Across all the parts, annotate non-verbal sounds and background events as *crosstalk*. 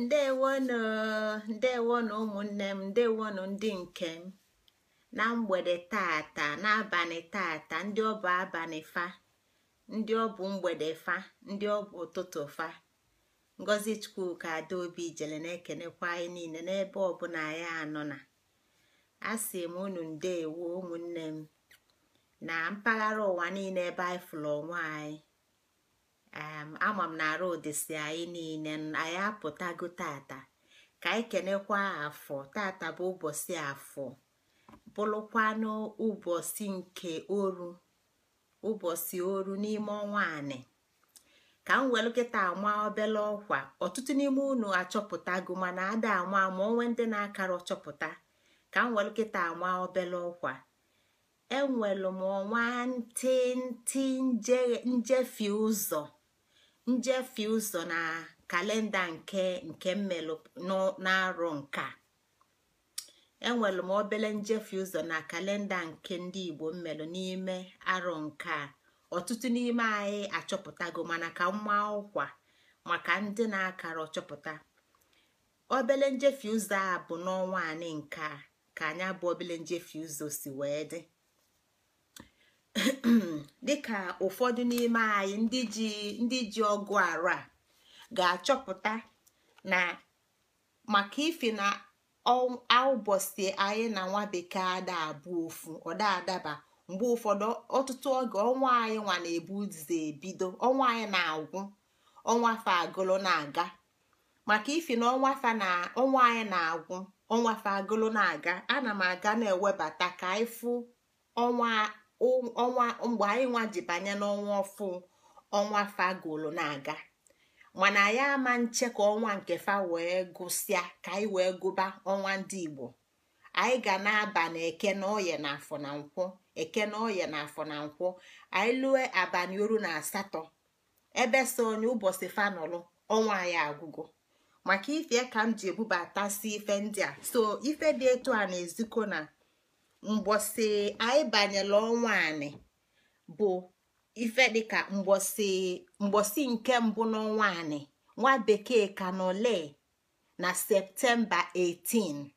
ndewonụ ndewonụ ụmụnne m ndewonụ ndị nke m na mgbede tata n'abalị tata ndị ọ bụ abalị fa ndị ọ bụ mgbede fa ndị ọ bụ ụtụtụ fa ngozi chukwuka adaobi jele na-ekenekwa anyị niile n'ebe ọbụla anyị anọ na asị m unu ndewo ụmụnne m na mpaghara ụwa niile ebe anyị fụrụ onwe anyị ama m na arụdịsi anyị niile anyị apụtago tata ka anyị kenekwa afọ tata bụ ụbọchị afọ bụrụkwanụ ụbọchị nke oru ụbọchị oru n'ime ọnwa anị ka m nwere kịta ama obele ọkwa ọtụtụ n'ime unu achọpụtago mana ada ama ma onwe ndị na-akara ọchọpụta ka m nwere kịta ama obele ọkwa enwelu m ọnwa ntị ntị njefi ụzọ njefe ụzọ na kalenda nke nke mmelụ na-arọ nka enwere m obele njefe ụzọ na kalenda nke ndị igbo mmelụ n'ime arọ nka ọtụtụ n'ime anyị achọpụtago mana ka mma ọkwa maka ndị na-akara ọchọpụta obele njefe ụzọ a bụ n'ọnwa anị ka anya bụ obele nje si wee dị *clears throat* dịka ụfọdụ n'ime anyị ndị ji ndị ji ọgụ arụ a ga-achọpụta na maka ife na ụbọchị anyị na nwa bekee ada abụ ofu ọda adaba mgbe ụfọdụ ọtụtụ oge ọnwa anyị nwa na-ebu ebido ọnwa anyị na-agwụ ọnwa fa agụlụ na-aga maka ifi na ọnwa fa na ọnwa anyị na-agwụ ọnwa fa agụlụ na-aga ana m aga na-ewebata ka anyị fụ ọnwa Um, ọnwa mgbe anyị nwa ji banye n'ọnwa ọfụ ọnwa fagolu na-aga mana anyị ama nche ka ọnwa nke fa wee gụsịa ka anyị wee gụba ọnwa ndị igbo anyị ga na-aba na eke na oye na afọ na nkwọ eke na oye na afọ na nkwọ anyị lue abalị oru na asatọ ebe so onye ụbọchị fanọlụ ọnwa ya agwụgo maka ife ka m ji ebubata si ife ndị a so ife dị etu a na-ezikọ na mgbọsị anyị banyela ọnwa bụ ife dịka mgbọsị mgbọsị nke mbụ n'ọnwa anị nwa bekee ka na septemba 18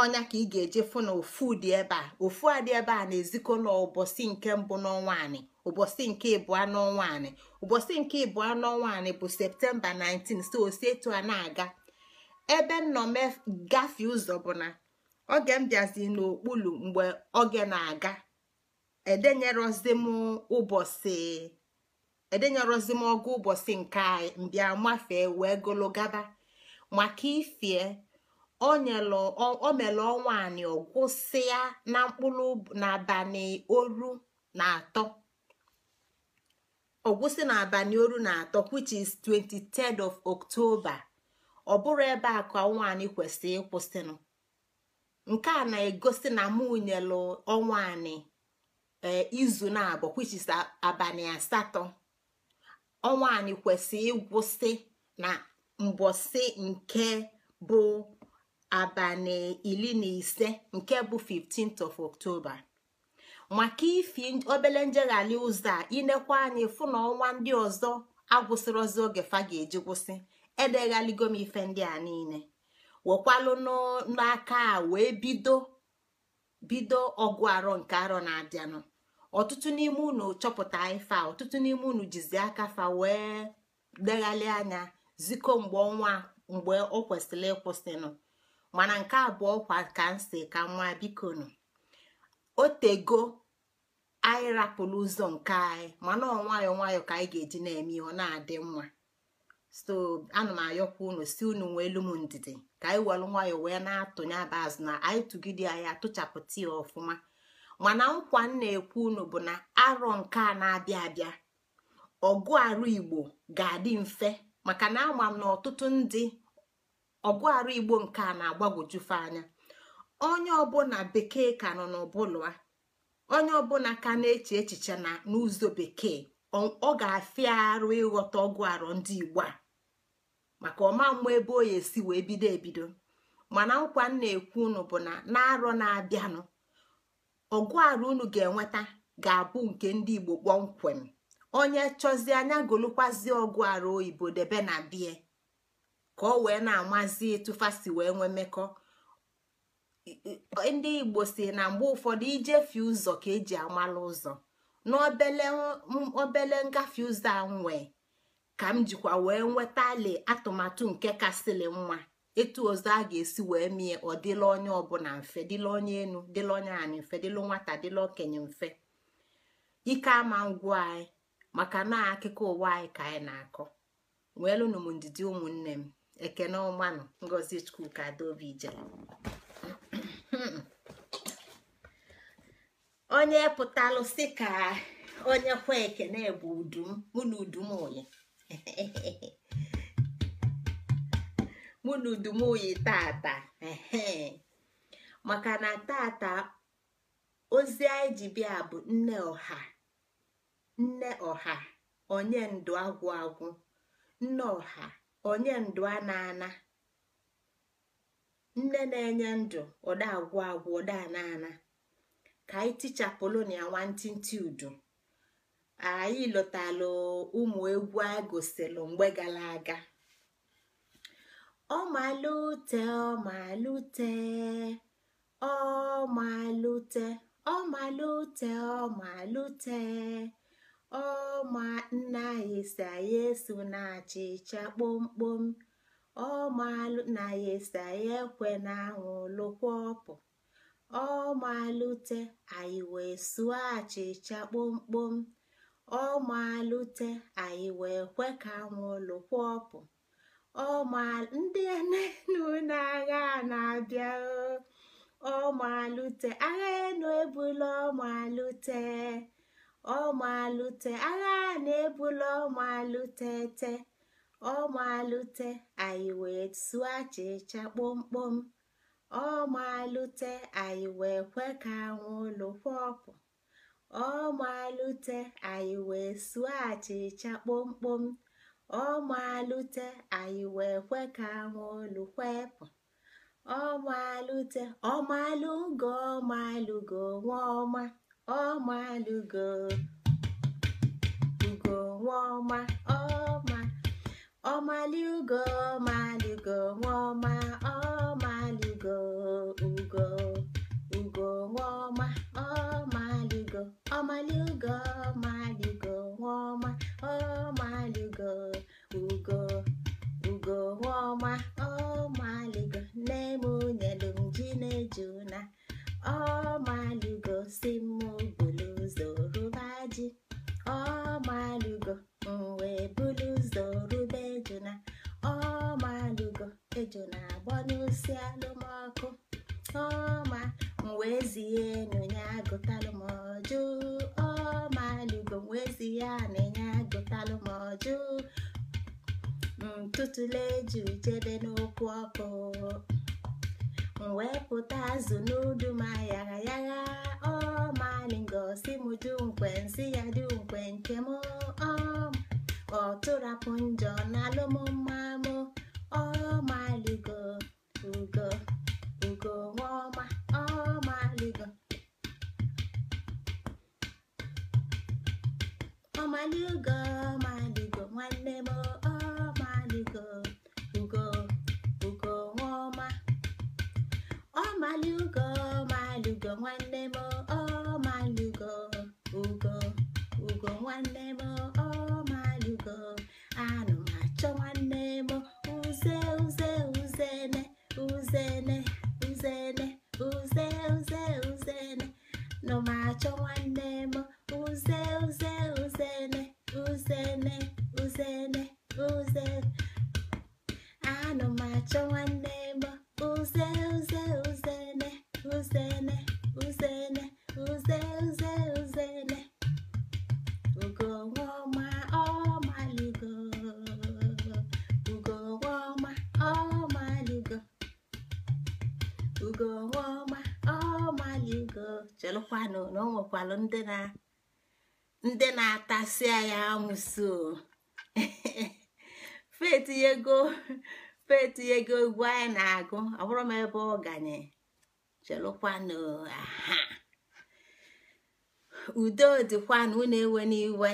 ọnya ka ị ga-eje fụ na ofu dị ebe a ofu ebe a na-ezikọ n'ụbọchị nke mbụ n'ọnwa anị nke ịbụọ n'ọnwa anị ụbọchị nke ịbụọ n'ọnwa anị bụ septemba 19 so osi etu a na-aga ebe nnọọ gafee ụzọ bụ na oge m bịazi n'okpulu mgbe oge na-aga edenyerozi m ụbọchị edenyerozi m ọgụ ụbọchị nke mbịa mafee wee gologaba maka ifie o mere ọnwa ọgwụsị na mkpụrụ n'abalị oru na atọ ọgwụsị n'abalị oru na atọ which is 23rd of October ọ bụrụ ebe a ka ọnwa anị kwesịrị ịkwụsịnụ nke a na-egosi na mụnyelu ọnwa anị e, izu na-abụ kwichis abalị asatọ ọnwa anị kwesịrị ịgwụsị na mbọsị nke bụ abalị iri na ise nke bụ 15th of October maka ifi obele njeghali ụzọ a inekwa anyị fụ na ọnwa ndị ọzọ agwụsịrọzi oge fa ga-eji gwụsị edeghaligo m ife ndị a niile wekwalụ n'aka a wee bido bido ọgụ arọ nke arọ na-abịanụ ọtụtụ n'ime unu chọpụta ife a ọtụtụ n'ime unu jizi aka fa wee deghalị anya ziko mgbe ọnwa mgbe o kwesịrị ịkwụsịnụ mana nke abụọ kwa ka nsi ka nwa bikonu otego anyị rapụrụ ụzọ nke anyị mana ọ nwayọọ nwayọọ ka anyị ga-eji na-eme ihe ọ na-adị mma so ana m ayọkwa unu si unu nwee elu m ndidi ka anyị welụ nwayọ wee na-atụnye aba azụ na anyị tụgide anyị atụchapụta ya ọfụma mana nkwa m na-ekwu unu bụ na arọ nke a na-abịa abịa ọgụ arụ igbo ga-adị mfe maka na ama m na ọtụtụ ndị ọgụ arụ igbo nke a na-agbagwojufe anya onye ọbụla bekee ka nọ n'ọbụla onye ọbụla ka na-eche echiche na n'ụzọ bekee ọ ga-afịa arụ ịghọta ọgụ arọ ndị igbo a maka ọma mma ebe o esi wee bido ebido mana nkwa m na-ekwu unu bụ na na-arọ na-abịanụ ọgụ arọ unu ga-enweta ga-abụ nke ndị igbo kpọmkwem onye chọzi anya golụkwazi ọgụ arụ oyibo debe na bie ka ọ wee na-amazi tụfasi wee nwee mmekọ ndị igbo si na mgbe ụfọdụ ijefie ụzọ ka eji amala ụzọ n'obele ngafe ụzọ a nwee ka m jikwa wee nweta nwetali atụmatụ nke kasịlị nwa etu ọzọ a ga-esi wee mie ọ dịla onye ọbụla mfe dịla onye enu dịla onye anyị mfe dịla nwata dịla okenye mfe ike ama ngwụ anyị maka na akụkọ ụwa anyị ka anyị na-akọ weelụnụ m ndidi ụmụnne m ekene ọmanụ ngozi chukwu ka adaobi jere *clears throat* onye pụtalụsị ka onye kwe ekene bụ udum mụ udum oyi mụ na *laughs* tata maka na tata ozi anyị ji bịa bụ nne ọha nne ọha onye ndụ agwụ agwụ nne ọha onye ndụ a na-ana nne na-enye ndụ ọda agwụ agwụ ọda na-ana ka anyị tichapụlụ na ya nwantịntị Udo, anyị lụtalụ ụmụ egwu anyị gosilụ mgbe gara aga ọmalute ọmalute ọmalute ọmalute ọmalute ọma nna anyị si anyị eso na achịcha kpomkpom Ọma na ya esi anyị ekwe na anwụ lụkwa ọpụ ọ malute anyị wee suo achịcha kpomkpom ọ malute anyị wee kwe ka anwụlụ kwọpụ ọ ma ndị enu na-agha na-abịa ọ malute agha enu ebula ọ malute ọ malute agha na-ebula ọ malute te ọ malute anyị wee suo achịcha kpomkpom ọ malute anyị wee kwe ka anwụlụ ọpụ. ọ malute anyị wee suo achịcha kpomkpom ọ malute anyị wee kwe ka anwụlụ kwepụ ọ malute ọ malụgo ọ malụgo nwa ọma ọ malụgo ugo nwa ọma ọma ọ malụgo ọ malụgo nwa ọma ugo ugo ọma ọmaligo ọmaligo ọmaligo nwaọma ọmaligo ugo ugo nwaọma ọmaligo nne ji na-eju na ọmaligo si m bulu ụzọ rụba ji ọmaligo wee bulu ụzọ rụba ejuna ọmaligo ejuna agbọ n'osi alụm ọma m wee zie na onye agụtalụ m ọjụ ọma lugo m wee ya na agụtalụ m ọjụ ntụtụle jiri jebe n'okwu ọkụ m pụta azụ n'udu m ayara yagha ọmalingosi m dunkwe nsị ya nkwe nke m ọ tụrapụ njọ n'alụmụmma m ọmaligo ugo ligo ọma ọma ligo ọma ligo ọma ligo nwanne m ọma ligo ugo ugo ọma ọma ligo ọma ligo nwanne m ọma go ugo ugo nwanne m ndị na-atasịa ya amụso *laughs* feti ego feti ego egwu anyị na-agụ abụrụ m ebe ọ ganye chelụkwanụ aha udo dịkwanụ unu ewe n'iwe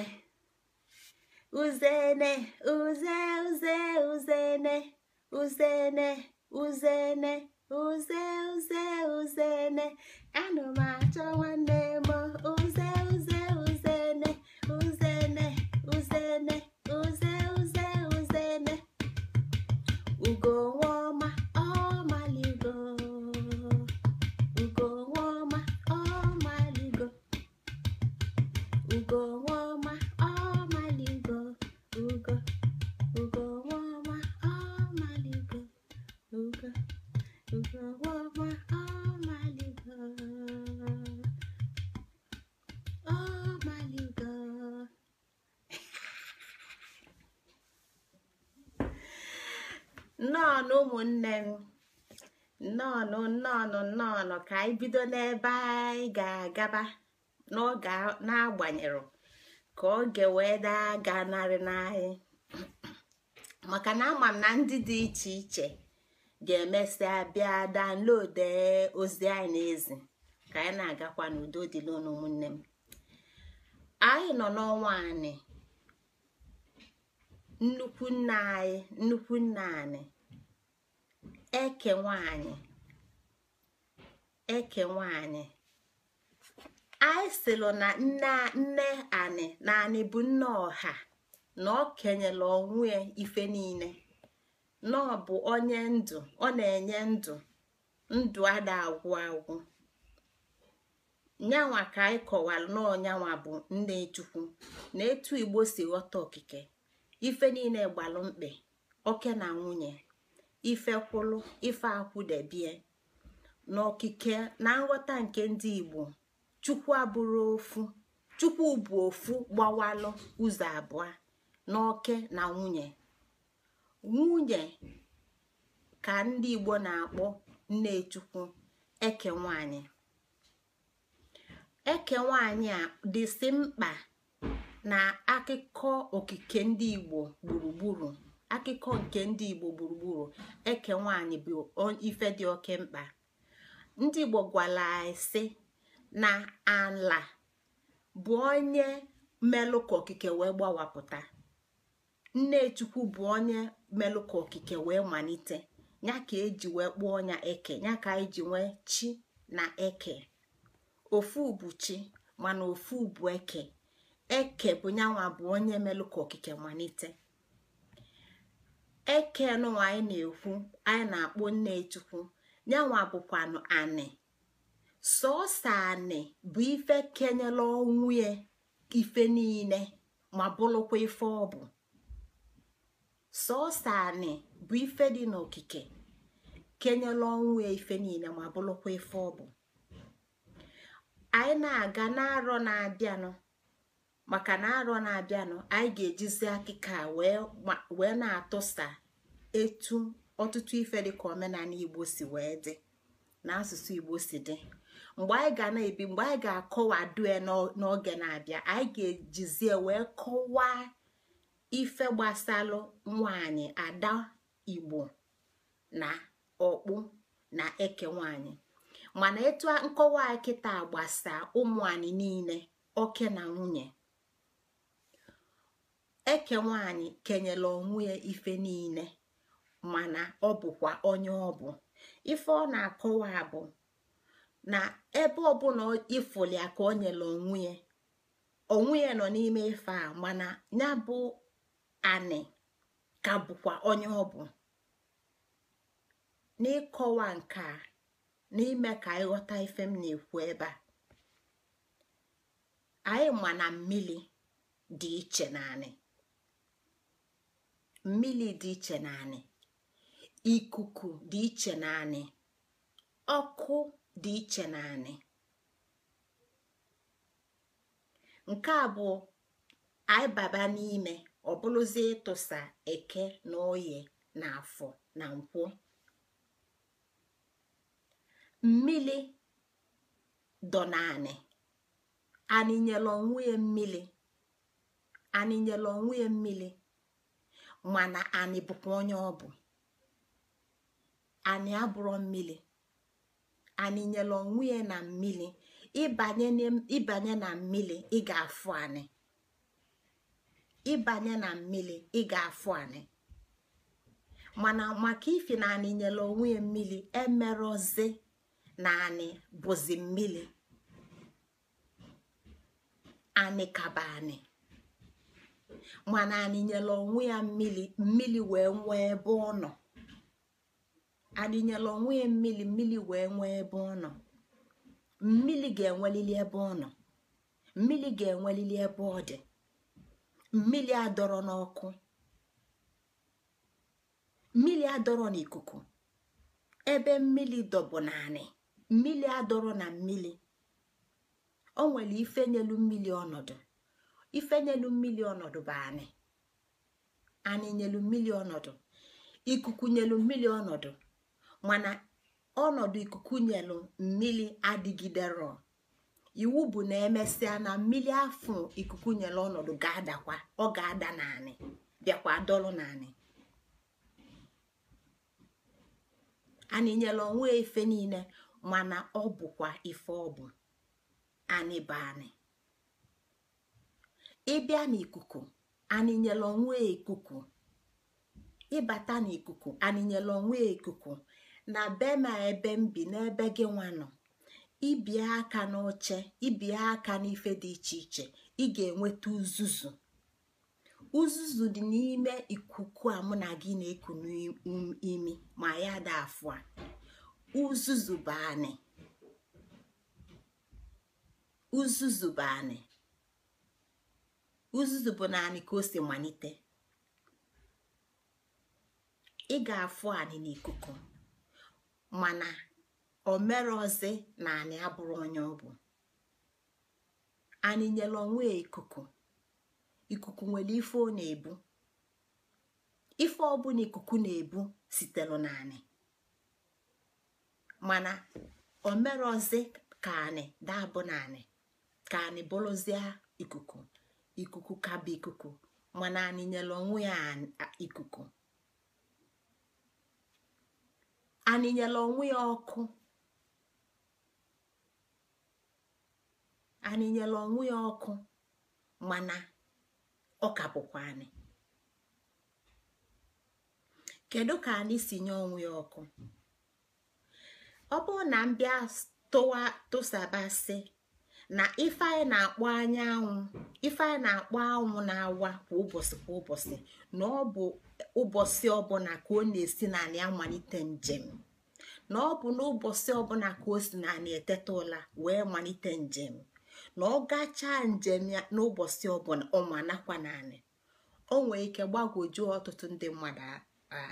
uzene uze uze uzene uzene uzene uze uze uzene anụ m achọ nwanne go nnọọ nnọọ nọ ka anyị bido n'ebe anyị ga-agaba n'oge na agbanyerụ ka oge wee daa gaa narị n'anyị *clears throat* maka na ama m na ndị dị iche iche ga-emesịa bịa danlode ozi anyị na-ezi ka anyị na-agakwa n'udo dị n'ụlọ ụmụnne m anyị nọ n'ọnwa anyị nnukwu nna anyị nnukwu nna anyị eke nwanyị eke nwanyị anyị silụ na nne nne na anị bụ nne ọha na ọ kenyela onwe ife niile na bụ onye ndụ ọ na-enye ndụ ndụ ada agwụ agwụ nyanwa ka anyị kọwara na ọnyanwa bụ nne chukwu na etu igbo si ghọta okike ife niile gbalụ mkpe oke na nwunye ife kwụlụ ife akwụdebie n'okike na nghọta nke ndị igbo chukwu abụrụ ofu chukwu bụ ofu gbawalụ ụzọ abụọ n'oke na nwunye nwunye ka ndị igbo na-akpọ nne chukwu eke nwanyị eke nwanyị a dịsị mkpa na akụkọ okike ndị igbo gburugburu akụkọ nke ndị igbo gburugburu eke nwanyị bụ ife dị oke mkpa ndị igbo gwara ise na ala bụ onye melụ ka okike wee gbawapụta nne chukwu bụ onye melụ ka okike wee malite ya ka eji wee kpụọ ọnya eke ya ka eji nwee chi na eke ofu bụ chi mana ofu bụ eke eke bụ nyanwa bụ onye melụ ka okike malite eke nọ anyị na-ekwu anyị na-akpọ nne chukwu yanwa bụkwanụ anị sọọsọ anị bụ ife kenyela ọnwụ ya ife niile ma bụrụkwa ife ọ bụ sọọsọ anị bụ ife dị n'okike kenyela ọnwụ ya ife niile ma bụrụkwa ife ọ bụ anyị na-aga n'arọ na-abịanụ maka na arọ na-abịanụ anyị ga-ejizi akịka wee na-atụsa etu ọtụtụ ife ka omenala igbo si wee dị na asụsụ igbo dị mgbe anyị ga na-ebi mgbe anyị ga-akọwadue n'oge na-abịa anyị ga-ejizie wee kọwaa ife gbasalụ nwanyị ada igbo na ọkpụ na eke nwanyị mana etu nkọwa kịta gbasa ụmụ niile oke na nwunye eke nwanyị kenyela onwe ya ife niile mana ọ bụkwa onye ọ bụ ife ọ na-akọwa bụ na ebe ọbụla ifuli ka o nyere onwe ya onwe ya nọ n'ime ife a mana ya bụ anị ka bụkwa onye ọ bụ n'ịkọwa nke a n'ime ka ịghọta ife m na-ekwu ebe a anyị ma na mmiri dị iche anị mmiri dị iche anị. ikuku dị iche na ọkụ dị iche na nke a bụ anyị baba n'ime bụrụzi ịtụsa eke na oye na afọ na nkwụ mmili dọ na aninyela onwe ya mmili aninyela onwe ya mmili mana anị bụkwa onye ọ bụ ani abụrọ mmiri anị nyere onwe ya na mmiri ịbanye na mmiri ị ga-afụ anyị ịbanye na ị ga-afụ mana maka ifi na anị nyere onwe ya mmiri emerọzi na anyị bụzi mmiri anyị kaba anyị mana anị nyere onwe ya mmiri mmiri wee nwee ebe ọ nọ adịnyela onwe ya mmiri mmiri wee nwee ebe ọ nọ mmiri ga-enwelili ebe ọ nọ mmiri ga-enwelili ebe ọ dị mmiri adọrọ n'ọkụ mmiri adọrọ n'ikuku ebe mmiri dọbụ naanị mmiri adọrọ na mmiri o nwere ifenyelu mmili ọnọdụ ifenyelu mmiri ọnọdụ bụ anị anị nyelu mmiri ọnọdụ ikuku nyelu mmiri ọnọdụ mana ọnọdụ ikuku nyelu mmiri adịgidero iwu bụ na emesịa na mmiri afọ ikuku nyelu ọnọdụ ga-adakwa ọ ga-ada naanị bịakwa dọlụ naanị anyị nyelu onwe efe niile mana ọ bụkwa ife ọ bụ anị bụ ịbịa n'ikuku anịnyela onwe ikuku ịbata n'ikuku anịnyela onwe ikuku na be ma ebe m bi n'ebe gị nwa nọ ibie aka n'oche ibie aka n'ife dị iche iche ị ga-enweta uzuzu uzuzu dị n'ime ikuku a mụ na gị na-eku n'imi ma ya da afụ a uzuzu bụ anị ka o si malite ị ga-afụ anị n'ikuku mana mere na anị abụrụ onye ọ bụ anyị nyela onwe ikuku ikuku nwere ife ọ na-ebu ife na ikuku na-ebu sitere na anị mana omerọzi ka anyị dabụ na anị ka anyị bụrụzie ikuku ikuku ka bụ ikuku mana anyị nyela onwe ya ikuku anịnyela onwe ya ọkụ anịnyela onwe ya ọkụ mana ọ ka bụkwa anị kedu ka anyị si nye onwe ya ọkụ ọ bụrụ na m tụsaba si na ife na-akpọ anyanwụ ife na-akpọ anwụ na-awa kwa ụbọchị kwa ụbọchị na ọ bụ ụbọchị ọbụla ka ọ na-esi naanị amalite njem na ọ bụ n'ụbọchị ọbụla ka o si naanị eteta ụla wee malite njem na ọ gachaa njem ya n'ụbọchị ọbụla ọma nakwa naanị o nwere ike gbagwojuo ọtụtụ ndị mmadụ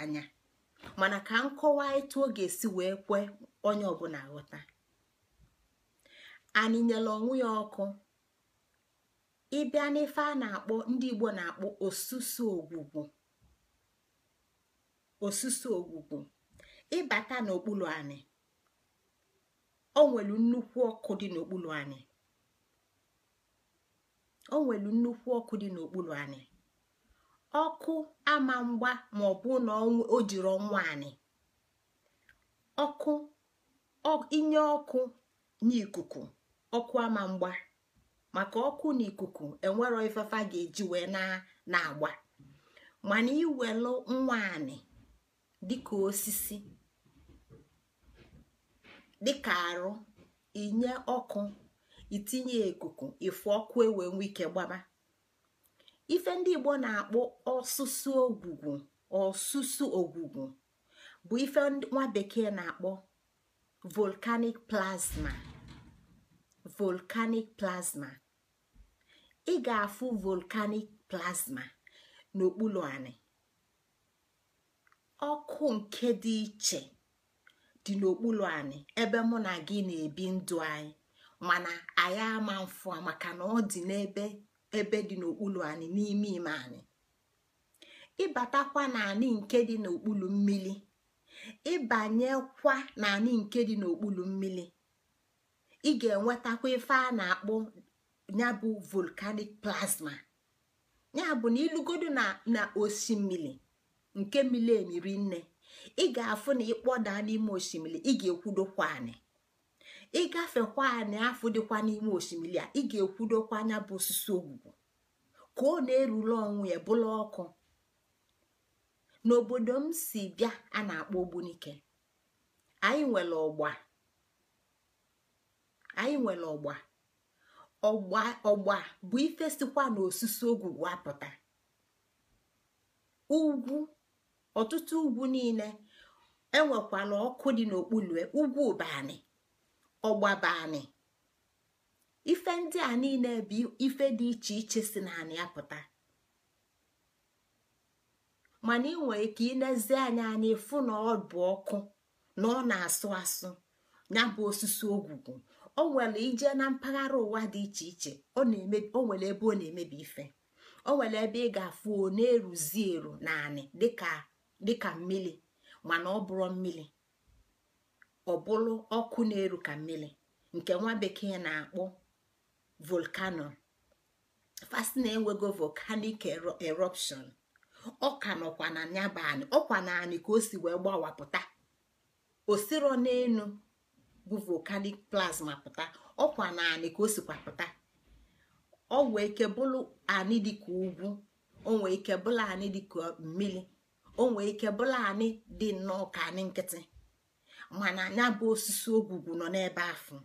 anya mana ka nkọwa etu ọ ga-esi wee kwe onye ọbụla ghọta anị nyela onwe ya ọkụ ịbịa n'ife a na-akpọ ndị Igbo na-akpọ osusu ogwugwu osusu ogwugwu ịbata n'okpuru anị o nwelu nnukwu ọkụ dị n'okpuru anị o nwelu nnukwu ọkụ dị n'okpuru anị ọkụ ama mgba ma ọ bụ na o jiri ọnwa anị ọkụ inye ọkụ n'ikuku ọkụ ama mgba maka ọkụ na ikuku enwero ifefa ga-eji wee na-agba mana iwelu nwaanị dịka osisi dịka arụ inye ọkụ itinye ikuku ifu ọkụ ewe nwe ike gbaba ife ndị igbo na-akpọ ọsụsụ ogwugwu ọsụsụ ogwugwu bụ ife nwa bekee na-akpọ volcanic plasma volkanic plasma ị ga-afụ volcanic plasma n'okpuru anị ọkụ nke dị iche dị n'okpuru anyị ebe mụ na gị na-ebi ndụ anyị mana anyị ama mfụ maka na ọ dị n'ebe ebe dị n'okpuru anyị n'ime ime anyị ịbatakwa n'anị nke dị n'okpuru mmiri ịbanyekwa n'anị nke dị n'okpuru mmiri ị ga-enwetakwa ife a na-akpọ ya bụ volcanic plasma ya bụ na ilugodo na osimiri nke mili emiri nne ị ga-afụ na ịkpọda n'ime osimiri ị ga-ekwudokwa anị ịgafekwa anị afụ dịkwa n'ime osimiri a ị ga-ekwudokwa anya bụ osisi ogwugwu ka ọ na-erule ọnwụ ya bụla ọkụ n'obodo m si bịa a na-akpọ ogbunike anyị nwere ọgba anyị nwere ọgba ọgba bụ ife sikwa na osisi ogwu wapụta ugwu ọtụtụ ugwu niile enwekwala ọkụ dị n'okpuru e, ugwu bani ife ndị a niile bụ ife dị iche iche si na naanị apụta mana ị nwere ike ilezi anya anyị fụ na ọ bụ ọkụ na ọ na-asụ asụ ya osisi ogwugwu o nwere ije na mpaghara ụwa dị iche iche o nwere ebe ọ na-emebi ife o nwere ebe ị ga-afụ o na-eruzi eru naanị dịka mmiri mana ọ bụrụ mmiri ọ bụrụ ọkụ na-eru ka mmiri nke nwa bekee na-akpọ volkano fasti na-enwego volcanic eruption ọ ka nọkwa na nyabanị ọkwa naanị ka o si wee gbawapụta osiro n'elu bụ plasma pụta ọkwa na anị ka o sikwa pụta ọ nwee ike bụrụ anị ka ugwu o nwee ike bụrụ anị ka mmiri o nwee ike bụrụ anị dị nnọọ ka anị nkịtị mana anya bụ osisi ogwugwu nọ n'ebe afọ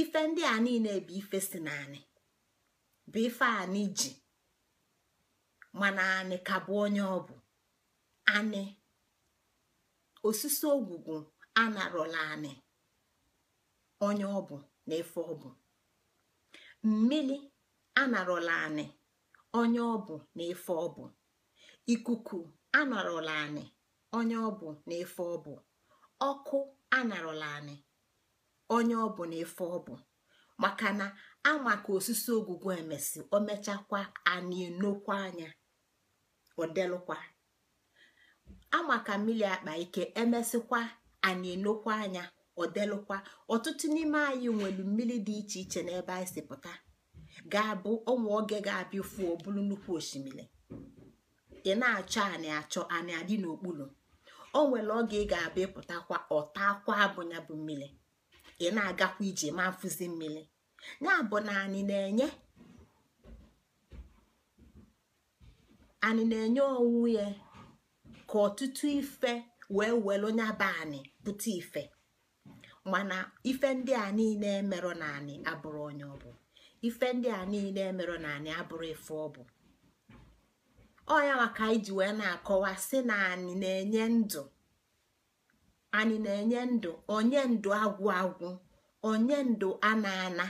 ife ndị a niile bụ ife si na anị bụ ife anị ji mana anị ka bụ onye ọ bụ anị osisi ogwugwu anarọla anị onye ọ bụ na efe ọ bụ mmili anarọla anị onye ọ bụ na efe ọ bụ ikuku anarọla anị onye ọ bụ na efe ọ bụ ọkụ anarọla anị onye ọ bụ na efe ọ bụ maka na ama ka osisi ogwugwu emesi o mechakwa anị enokwa anya ọ ama ka mmiri akpa ike emesịkwa anyị enokwa anya ọ delụkwa ọtụtụ n'ime anyị nwere mmiri dị iche iche n'ebe anyị si pụta ga-abụ ọnwa oge ga-abịa ofu bụrụ nnukwu osimiri ị na-achọ anyị achọ anyị adị n'okpuru o nwere oge ị ga-abịa ịpụtakwa ọta abụnya bụ mmiri ị na-agakwa ije ma mfụzi mmiri ya bụ na anyị na-enye anyị na-enye onwe ya ka ọtụtụ ife wee were onye abanị bute ife mana ife ndị a niile emerọ naanị abụrụ onye ọ bụ ife ndị a niile emerọ naanị abụrụ ife ọ bụ ọya maka iji wee na-akọwa si na anyị na-enye ndụ anyị na-enye ndụ onye ndụ agwụ agwụ onye ndụ ana ana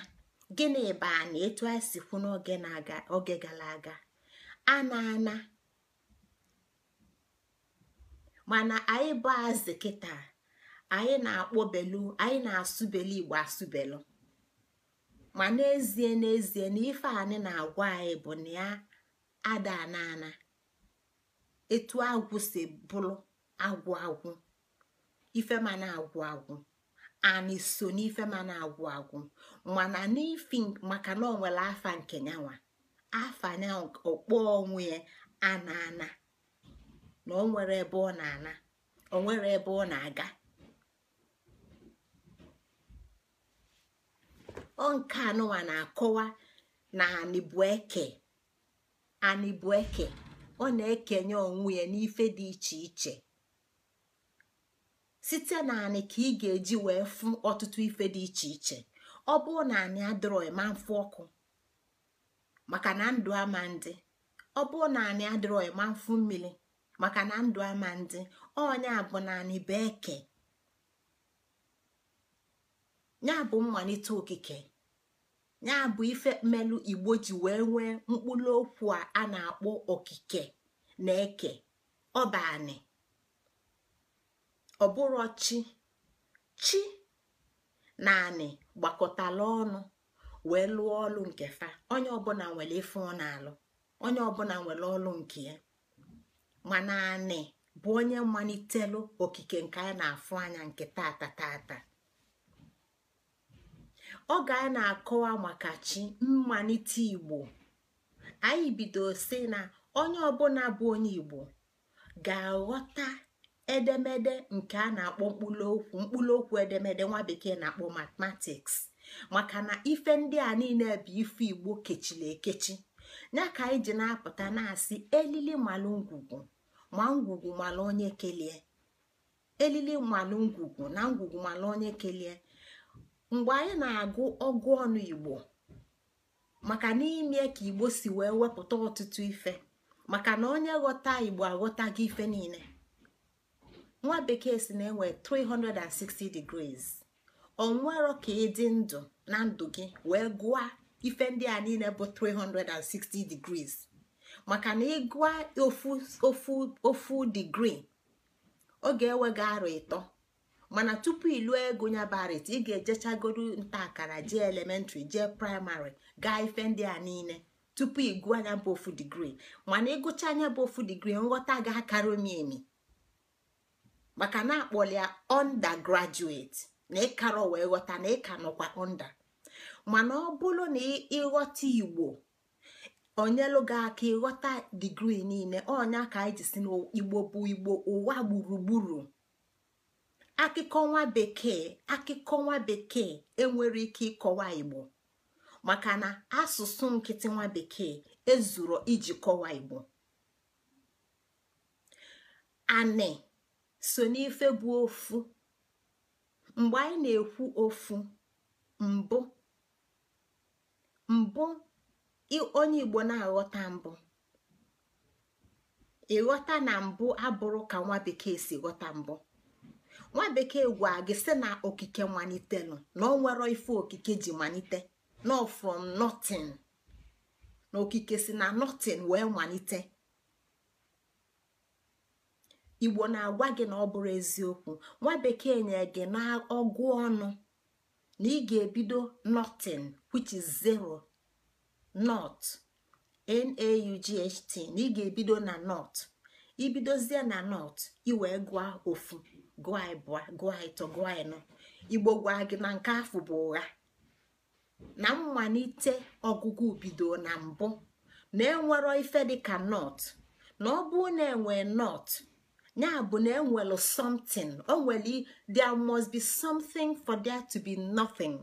gịnị bụ anyị etu anyị si kwu n'oge gara aga a na-ana mana anyị bụ azị kịta anyị na-akpọbelu anyị na-asụbelu igbo asụbelu ma n'ezie n'ezie na ife anyị na-agwa anyị bụ na ya ada anana etu agwụ si bụrụ agwụ agwụ ife ma agwụ agwụ ani so n'ife ma na-agwụ agwụ mana n'ifi maka na ọ nwere afa nke nyanwa afa onwe ya ana na o nwere ebe ọ na-ana o ebe ọ na-aga ọ nke anụwa na-akọwa na anịbụeke anịbụeke ọ na-ekenye onwe ya n'ife dị iche iche site na anị ka ị ga-eji wee fụ ọtụtụ ife dị iche iche ọ bụrụ na anị adịrọ ma ọkụ maka na ndụ ama ndị ọ bụrụ na anị adịrọ ma mfụ mmiri maka na ndụ ama ndị onye bụ naanị bụ ya bụ mmalite okike ya bụ ife mmelu igbo ji wee nwee mkpụrụ okwu a na-akpọ okike na eke ọbanị ọbụrụ chi chi naanị gbakọtala ọnụ wee lụọ ọlụ nke fa onye ọbụla nwere ife ọ na-alụ onye ọbụla nwere ọlụ nke ya mana anị bụ onye mmalitelụ okike nke anyị na-afụ anya nke tata tata oge anyị na-akọwa maka chi mmalite igbo anyị bido si na onye ọbụla bụ onye igbo ga-aghọta edemede nke a na-akpọ mkpụrụokwu mkpụrụokwu edemede nwa bekee na-akpọ matematiks maka na ife ndị a niile bụ ife igbo kechiri ekechi ya ka anyị ji na-apụta na-asị elili malụ ngwugwu ma ngwugwu mala onye kelie elili mala ngwugwu na ngwugwu mala onye kelie mgbe anyị na-agụ ọgụ ọnụ igbo maka n'ime ka igbo si wee wepụta ọtụtụ ife maka na onye ghọta igbo aghọtaghị ife niile nwa bekee si na-enwe 360 degrees onwero ka ịdị ndụ na ndụ gị wee gụọ ife ndị a niile bụ 360 degrees maka na ịgụa ofu ofu digri ọ ga-ewe gị ịtọ mana tupu ịlụ ego ya barit ị ga ejechagoro nta akara jee elementrị jee praịmarị gaa ife ndị a niile tupu ị gụọ anya bụ ofu digrii mana ịgụcha anya bụ ofu digri nghọta ga-akara eme maka na akpọli ya undergraduate na ịkara wee ghọta na ịka nọkwa onda mana ọ bụrụ na ịghọta igbo onyelu gị aka ịghọta digrii niile ọnya ka anyị jisi si n'igbo bụ igbo ụwa gburugburu akụkọ nwa bekee akụkọ nwa bekee enwere ike ịkọwa igbo maka na asụsụ nkịtị nwa bekee ezuru iji kọwa igbo anị so n'ife bụ ofu mgbe anyị na-ekwu ofu mbụ mbụ onye igbo na-aghọta mbụ ịghọta na mbụ abụrụ ka nwa bekee si ghọta mbụ nwa bekee gwa gị sị na okike malitelụ na ọ nwere ife okike ji malite no from na okike si na nothing wee malite igbo na-agwa gị na ọ bụrụ eziokwu nwa bekee nye gị na ọgụ ọnụ na ị ga-ebido notin which is zero nọt NAUGHT na ị ga-ebido na nọt ibidozie na ị wee gụa ofu gụa ịbụa gụa ịtọ gụa ịnọ igbo gwa gị na nke afọ bụ ụgha na mmalite ọgụgụ bido na mbụ na enwero ife dịka nọt na ọ bụ na enwe nọt ya bụ na enwelu something o nwere there must be something for there to be nothing.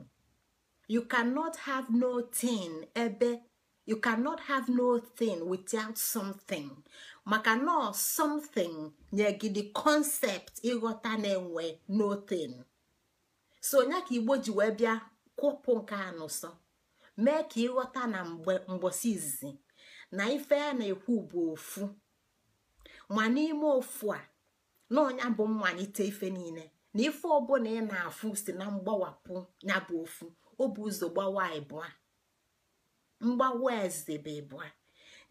you cannot have no thing ebe you cannot have no thing without something maka na something nye gị the concept ịghọta na-enwe no thing so onye ka igbo ji wee bịa kwụpụ nke anụso mee ka ịghọta na mgbosi izizi na ife a na-ekwu bụ ofu ma n'ime ofu a na ọnya bụ mmalite ife niile na ife ọbụla ị na-afụ si na mgbawapụ ya bụ ofu Ọ bụ ụzọ gbawa ịbụa mgbawa eze bụ ịbụa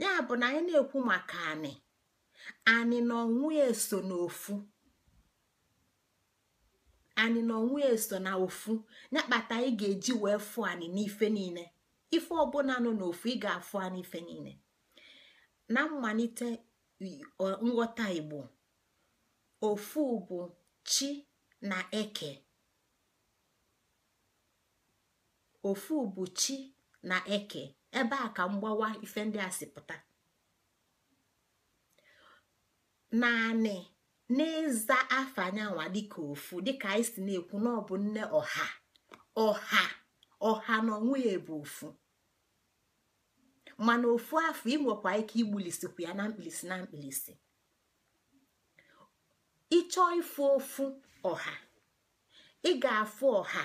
ya bụ na anyị na-ekwu maka anị anị na ọnwụ ya eso na ofu Anyị na ọnwụ ya eso na ofu ya kpata ị ga-eji wee fụ anị n'ife niile ife ọbụla nọ n'ofu ị ga-afụ anị ife niile na mmalite nghọta igbo ofu bụ chi na eke ofu bụ chi na eke ebe a ka mgbawa ife ndị a si pụta naanị n'ịza afọ anyanwa dịka ofu dịka anyị si na-ekwu na ọbụ nne ọha ọha ọha na onwe bụ ofu mana ofu afọ inwekwa ike igbulisikwu ya na mkpilisi na mkpilisi ịchọọ ịfụ ofu ọha ị ga-afụ ọha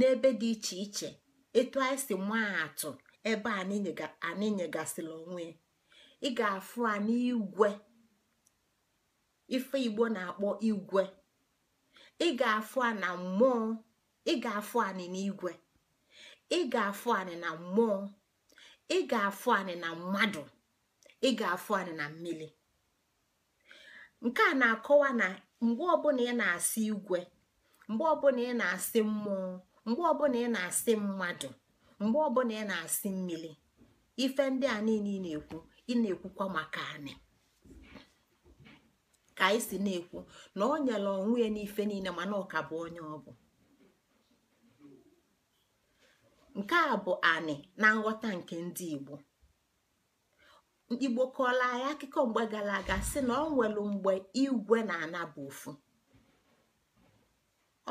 n'ebe dị iche iche etu anyị si maa atụ ebe anyị nyegasịrị onwe ị ga-afụ a n'igwe ife igbo na-akpọ igwe ị ga-afụ a na mmụọ ị ga-afụ anyị n'igwe ị ga anyị na mmụọ ị ga-afụ anyị na mmadụ ị ga-afụ anyị na mmiri nke a na-akọwa na mgbe ọbụla ị na-asị igwe mgbe ọbụla ị na-asị mmụọ mgbe ọbụla ị na-asị mmadụ mgbe ọbụla ị na-asị mmiri ife ndị a niile ị na-ekwu ị na-ekwukwa maka anị ka anyị si na-ekwu na ọ nyele onwe ya n'ife niile mana ọ ka bụ onye ọ bụ nke a bụ anị na nghọta nke ndị igbo igbo kọọla anyị akụkọ mgbe gara aga si na ọ nwere mgbe igwe na-ana bụ ofu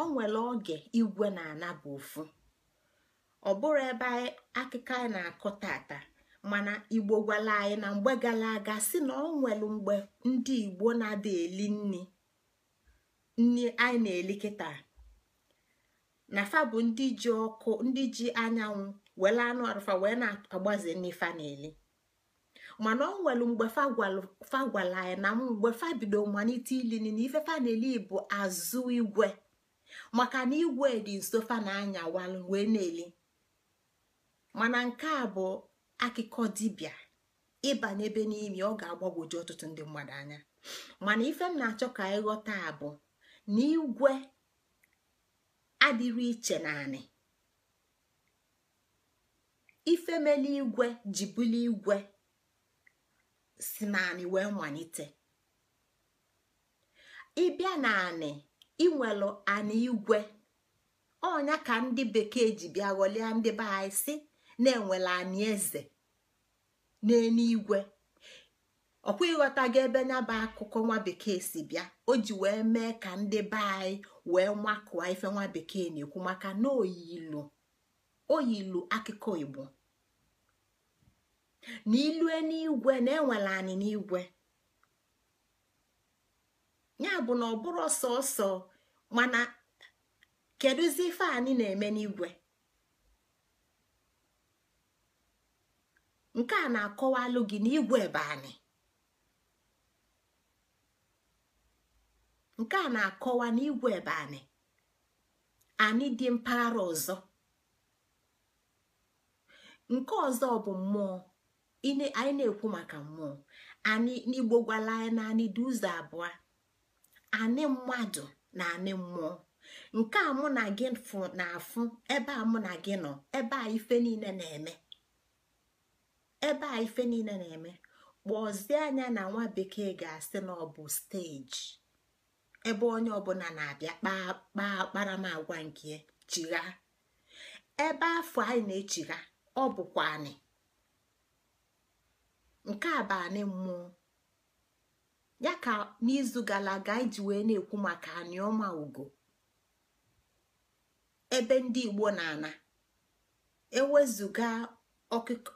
o nwere oge igwe na-anaba ofu ọ bụrụ ebe akụkọ anyị na-akọ tata mana igbo gwala anyị na mgbe gara aga si na ọ nwere mgbe ndị igbo na-ada eli nri nri anyị na-eli kịta na fa bụ ndị ji ọkụ ndị ji anyanwụ were anụ arụfa wee na-agbaze nri fa na-eli mana ọ nwere mgbe fa gwala anyị na mgbe fa bido malite ili na ife fa na-eli bụ azụ igwe maka na igwe dị nso fa na anya wee na-eli mana nke a bụ akụkọ dibịa ịbanye ebe n'imi ọ ga-agbagwoju ọtụtụ ndị mmadụ anya mana ife m na-achọ ka ịghọta bụ na igwe adịrị iche naanị ifemeli igwe ji buli igwe si naanị wee malite ịbịa naanị inwelu ana igwe ọnya ka ndị bekee ji bịa ghọlie ndị be anyị si na-enwele anyị eze n'eluigwe ọkwa ịghọtago ebe nyaba akụkọ nwa bekee si bịa o ji wee mee ka ndị be anyị wee makụọ ife nwa bekee na-ekwu maka na oyilu oyilu akụkọ igbo na ilu na enwele n'igwe ya bụ na ọ bụrụ ọsọ ọsọ mana kedụzi ife na-eme n'igwe nke a na-akọwalụ gị n'igwe anyị nke a na-akọwa n'igwe ebe anyị anyị dị mpaghara ọzọ nke ọzọ bụ mmụọ anyị na-ekwu maka mmụọ anyị n'igbo gwala anyị na anyị dị ụzọ abụọ anị mmadụ na anị mmụọ nke a mụ na gị na ebe a mụ na gị nọ ebe a ife niile na-eme ebe a ife niile na-eme kpọzie anya na nwa bekee ga-asị na ọ bụ steji ebe onye ọbụla na-abịa kpaa kparamagwa nke chigha ebe afọ anyị na-echigha ọ bụkwa anị nke a bụ anị mmụọ ya ka n'izu gara aga iji wee na-ekwu maka aniọma ugo ebe ndị igbo na-ana ewezụga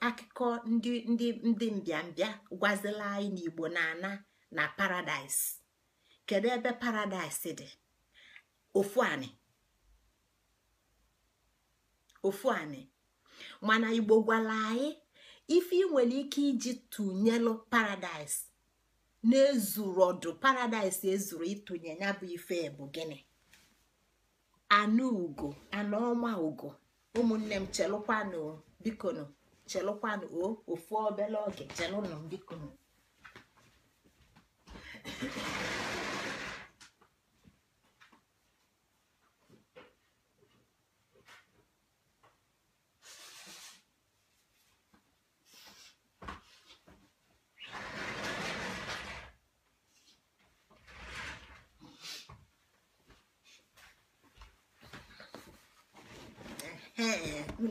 akụkọ ndị ndị ndị mbịambịa gwazila anyị n'igbo na-ana na paradaịs kedu ebe paradaịs dị ofu anị ofu mana igbo gwara anyị ife ị nwere ike iji tụnyelụ paradaịs na-ezuru ọdụ paradaịs ezuru ịtụnye ya bụ ife bụ gịnị anụ ugo anụ ọma ugo ụmụnne m chelụkwanụ bikonu chelụkwanụ o ofu obele oge chelụnụ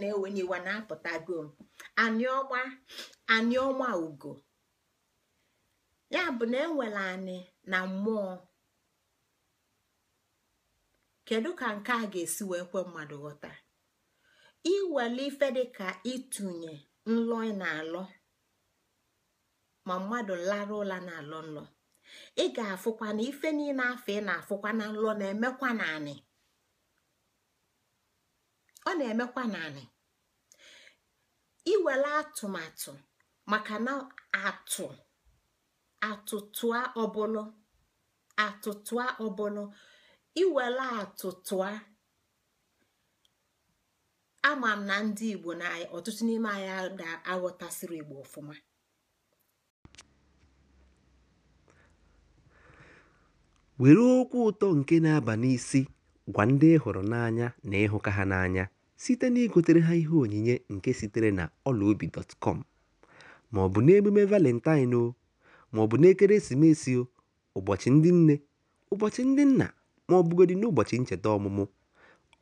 na n'iwa na-apụtago m aniọma aniọma ugo ya bụ na enwela anyị na mmụọ kedu ka nke a ga-esi wee kwe mmadụ ghọta iwele ife dịka ịtụnye nlọ ị na-alọ ma mmadụ lara ụla na-alọ nlọ ị ga-afụkwa na ife niile afọ ị na-afụkwa na nlọ na-emekwa na anị ọ na-emekwa naanị iwere atụmatụ maka na atụ atụtụa ọbụla atụtụa ọbụla iwere atụtụa ama m na ndị igbo na ọtụtụ n'ime ga aghọtasịrị igbo ọfụma were okwu ụtọ nke na-aba n'isi Gwa ndị ị hụrụ n'anya na ịhụka ha n'anya site na igotere ha ihe onyinye nke sitere na ọlaobi.com ma ọ bụ n'emume Valentine ma ọ bụ o ụbọchị ndị nne, ụbọchị ndị nna ma ọ bụgodị n'ụbọchị ncheta ọmụmụ,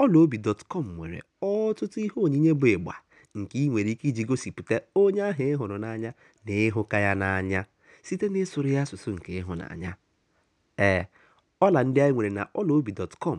ọlaobi.com nwere ọtụtụ ihe onyinye bụ ịgba nke ị nwere ike iji gosipụta onye ahụ ị hụrụ n'anya na ịhụka ya n'anya site n'ịsụrụ ya asụsụ nke ịhụnanya. Ee, eh, ọla ndị anyị nwere na ọlaobi.com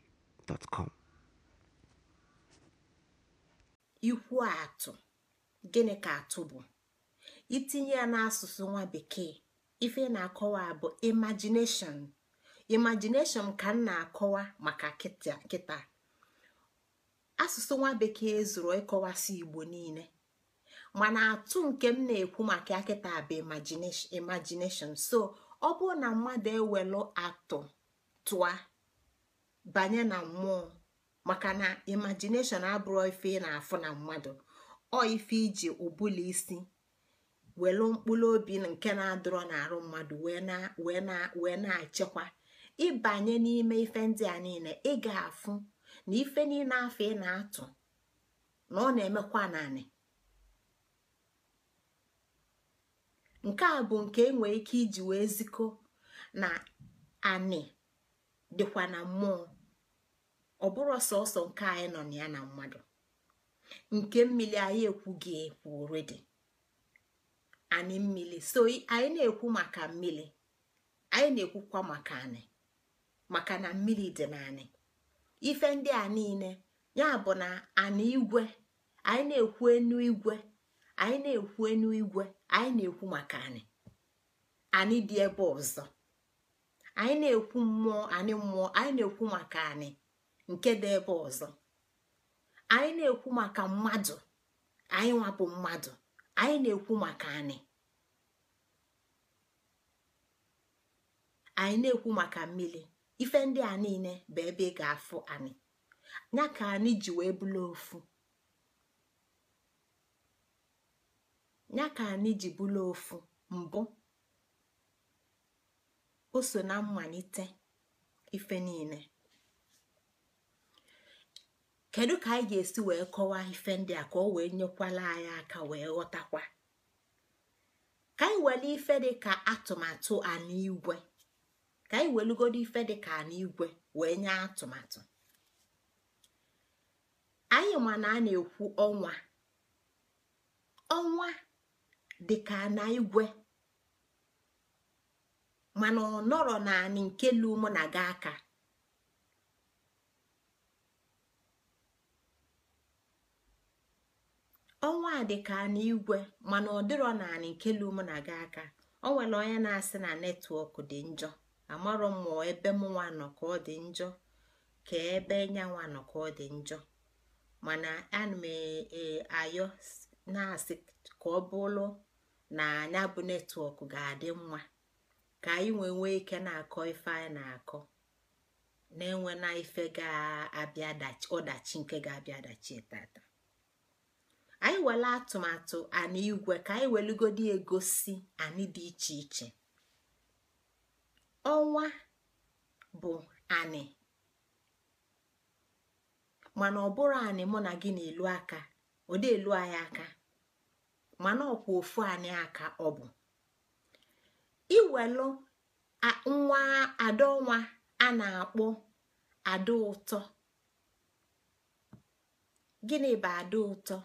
gmail.com ikwu atụ gịnị ka atụ bụ itinye ya n'asụsụ nwa bekee ife na-akọwa bụ imagination imagination ka m na-akọwa maka kịta asụsụ nwa bekee zụrụ ịkọwasị igbo niile mana atụ nke m na-ekwu maka akịta bụ imagination so ọ bụrụ na mmadụ ewelu atụ tụa banye na mmụọ maka na imagination abụrụ ife ị na-afụ na mmadụ ọ ife iji ụbụla isi welu mkpụrụ obi nke na-adọrọ n'arụ mmadụ wee na achịkwa ịbanye n'ime ife ndị a niile ị ga-afụ na ife niile afọ ị na-atụ na ọ na-emekwa naanị nke a bụ nke e nwere ike iji wee zikọ na anị dịkwa na mmụọ ọ bụrụ sọsọ nke anyị nọ na ya na mmadụ nke mmiri anyị ekwughị ekwu dị anyị mmiri so anyị na-ekwu maka mmiri anyị na-ekwukwa maka anyị maka na mmiri dị na anyị ife ndị a niile ya bụ na anyị igwe anyị na-ekwu enu igwe anyị na-ekwu enu igwe anyị na-ekwu maka anyị anyị dị ebe ọzọ anyị na-ekwu mmụọ anyị mmụọ anyị na-ekwu maka anyị nke dị ebe ọzọ anyị na-ekwu maka mmadụ anyị nwapụ mmadụ anyị na-ekwu maka anyị anyị na-ekwu maka mmiri ife ndị a niile bụ ebe ị ga-afụ anyị ya ka anyị ji wee bụrụ ofu ya ka anyị ji bụrụ ofu mbụ o so na mmalite ife niile kedu ka anyị ga-esi wee kọwaa ife ndị a ka o wee nyekwala anyị aka wee ghọtakwa ka anyị were ife dị ka atụmatụ anigwe ka anyị welugodo ife dị ka anigwe wee nye atụmatụ anyị ma na a na-ekwu ọnwa ọnwa dị ka na igwe mana ọ nọrọ naanị nke lu mụ na gị aka ọnwa dị ka n'igwe mana ọ dịrọ naanị nke lu mụ na gị aka ọ nwere onye na-asị na netwọk dị njọ amarọ mụọ ebe m nwa nọ ka ọ dị njọ ka ebe nyanwa nọ ka ọ dị njọ mana ana m e, e, ayọ na-asị ka ọ bụrụ na anya bụ netwọk ga-adị mma ka anyị nwee nwee ike na-akọ ife anyị na-akọ na-enwe na ife ga ọdachi nke ga-abịa dachi tata anyị were atụmatụ anyị igwe ka anyị welugodi egosi anyị dị iche iche ọnwa bụ anị mana ọ bụrụ anị mụ na gị na-elu aka ọ dị elu anyị aka mana ọkwa ofu anyị aka ọ bụ iwelu nwa adaọnwa a na-akpọ ada ụtọ gịnị bụ ada ụtọ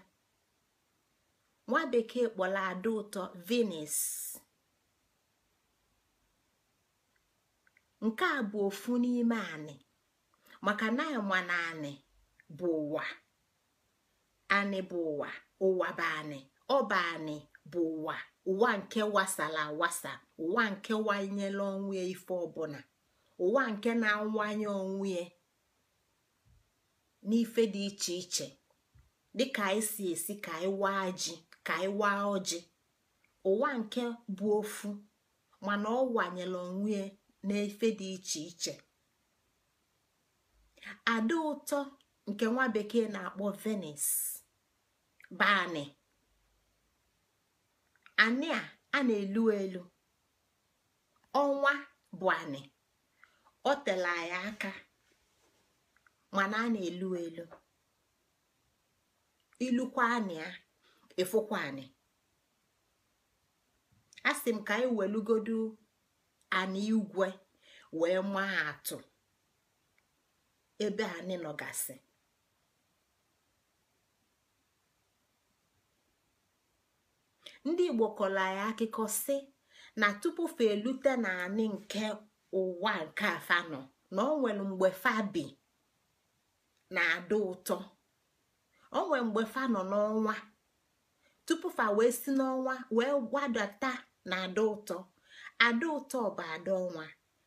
nwa bekee kpọrọ ada ụtọ Venus nke a bụ ofu n'ime anị maka na ma na anị bụ ụwa anị bụ ụwa ụwa bụ anị ọ bụ anị bụ ụwa ụwa nke wasala awasa ụwa nke wanyela onwe ya ife ọbụla ụwa nke na-awanye onwe ya n'ife dị iche iche dịka anyị si esi ka anyị waa ji ka anyị waa ọjị ụwa nke bụ ofu mana ọ wanyela onwe ya n'ife dị iche iche ada ụtọ nke nwa bekee na-akpọ venis bani anị a a na-elu elu ọnwa bụ anị o tela ya aka mana a na-elu elu ilukwa anị a efukwa anị a m ka anyị welugodu anị igwe wee maa atụ ebe anị nọgasị ndị igbo kọla ya akụkọ si na tupu fa elute naanị nke ụwa nke afanọ na o nwere mgbe fabi na-ada ụtọ o nwere mgbe fa nọ n'ọnwa tupu fa wee si n'ọnwa wee gbadata na ada ụtọ ada ụtọ bụ ada ọnwa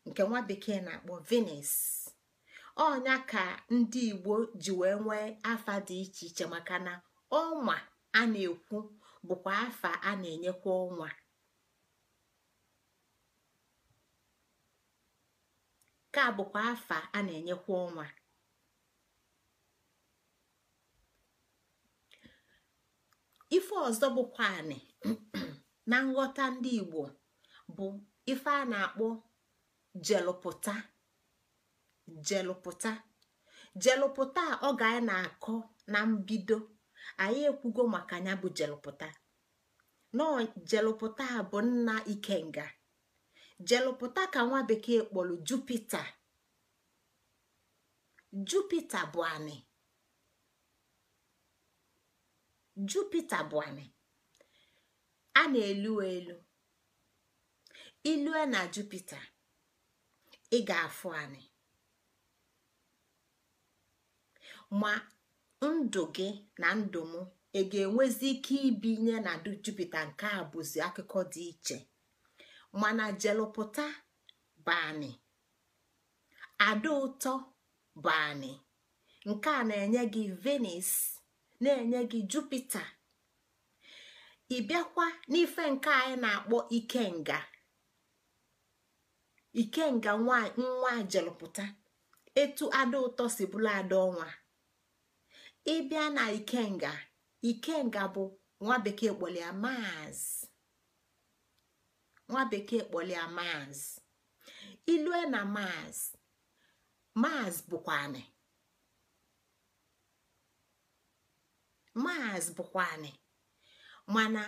nke nwa bekee na-akpọ venus ọnya ka ndị igbo ji wee nwee afa dị iche iche maka na ọnwa a na-ekwu bụkwa afa a na-enyekwa ọnwa ka bụkwa afa a na-enyekwa ọnwa ife ọzọ bụkwa anị *clears throat* na nghọta ndị Igbo bụ ife a na-akpọ jelupụta jelụpụta jelụpụta ọ ga na-akọ na mbido anyị ekwugo maka ya bụ jelụpụta nọ jelụpụta a bụ nna ikenga jelụpụta ka nwa bekee kpọrọ jupita jupita bụ anị jupita bụ anị a na-elu elu ilue na jupita ị ga-afụ anị ma ndụ gị na ndụ m ị ga-enwezi ike ibi nye na jupụta nke a bụzi akụkọ dị iche mana jelụpụta bani ada ụtọ bani nke a na-enye gị venus na-enye gị jupita ịbịakwa n'ife nke anyị na-akpọ ikenga ikenga nwa jelụpụta etu ada ụtọ si bụrụ ada ọnwa ịbịa na ikenga ikenga bụ nwa bekee kpọlịa maazị nwa bekee kpọlịa maazị ilue na maazị maazị bụkwanị maazị bụkwanị mana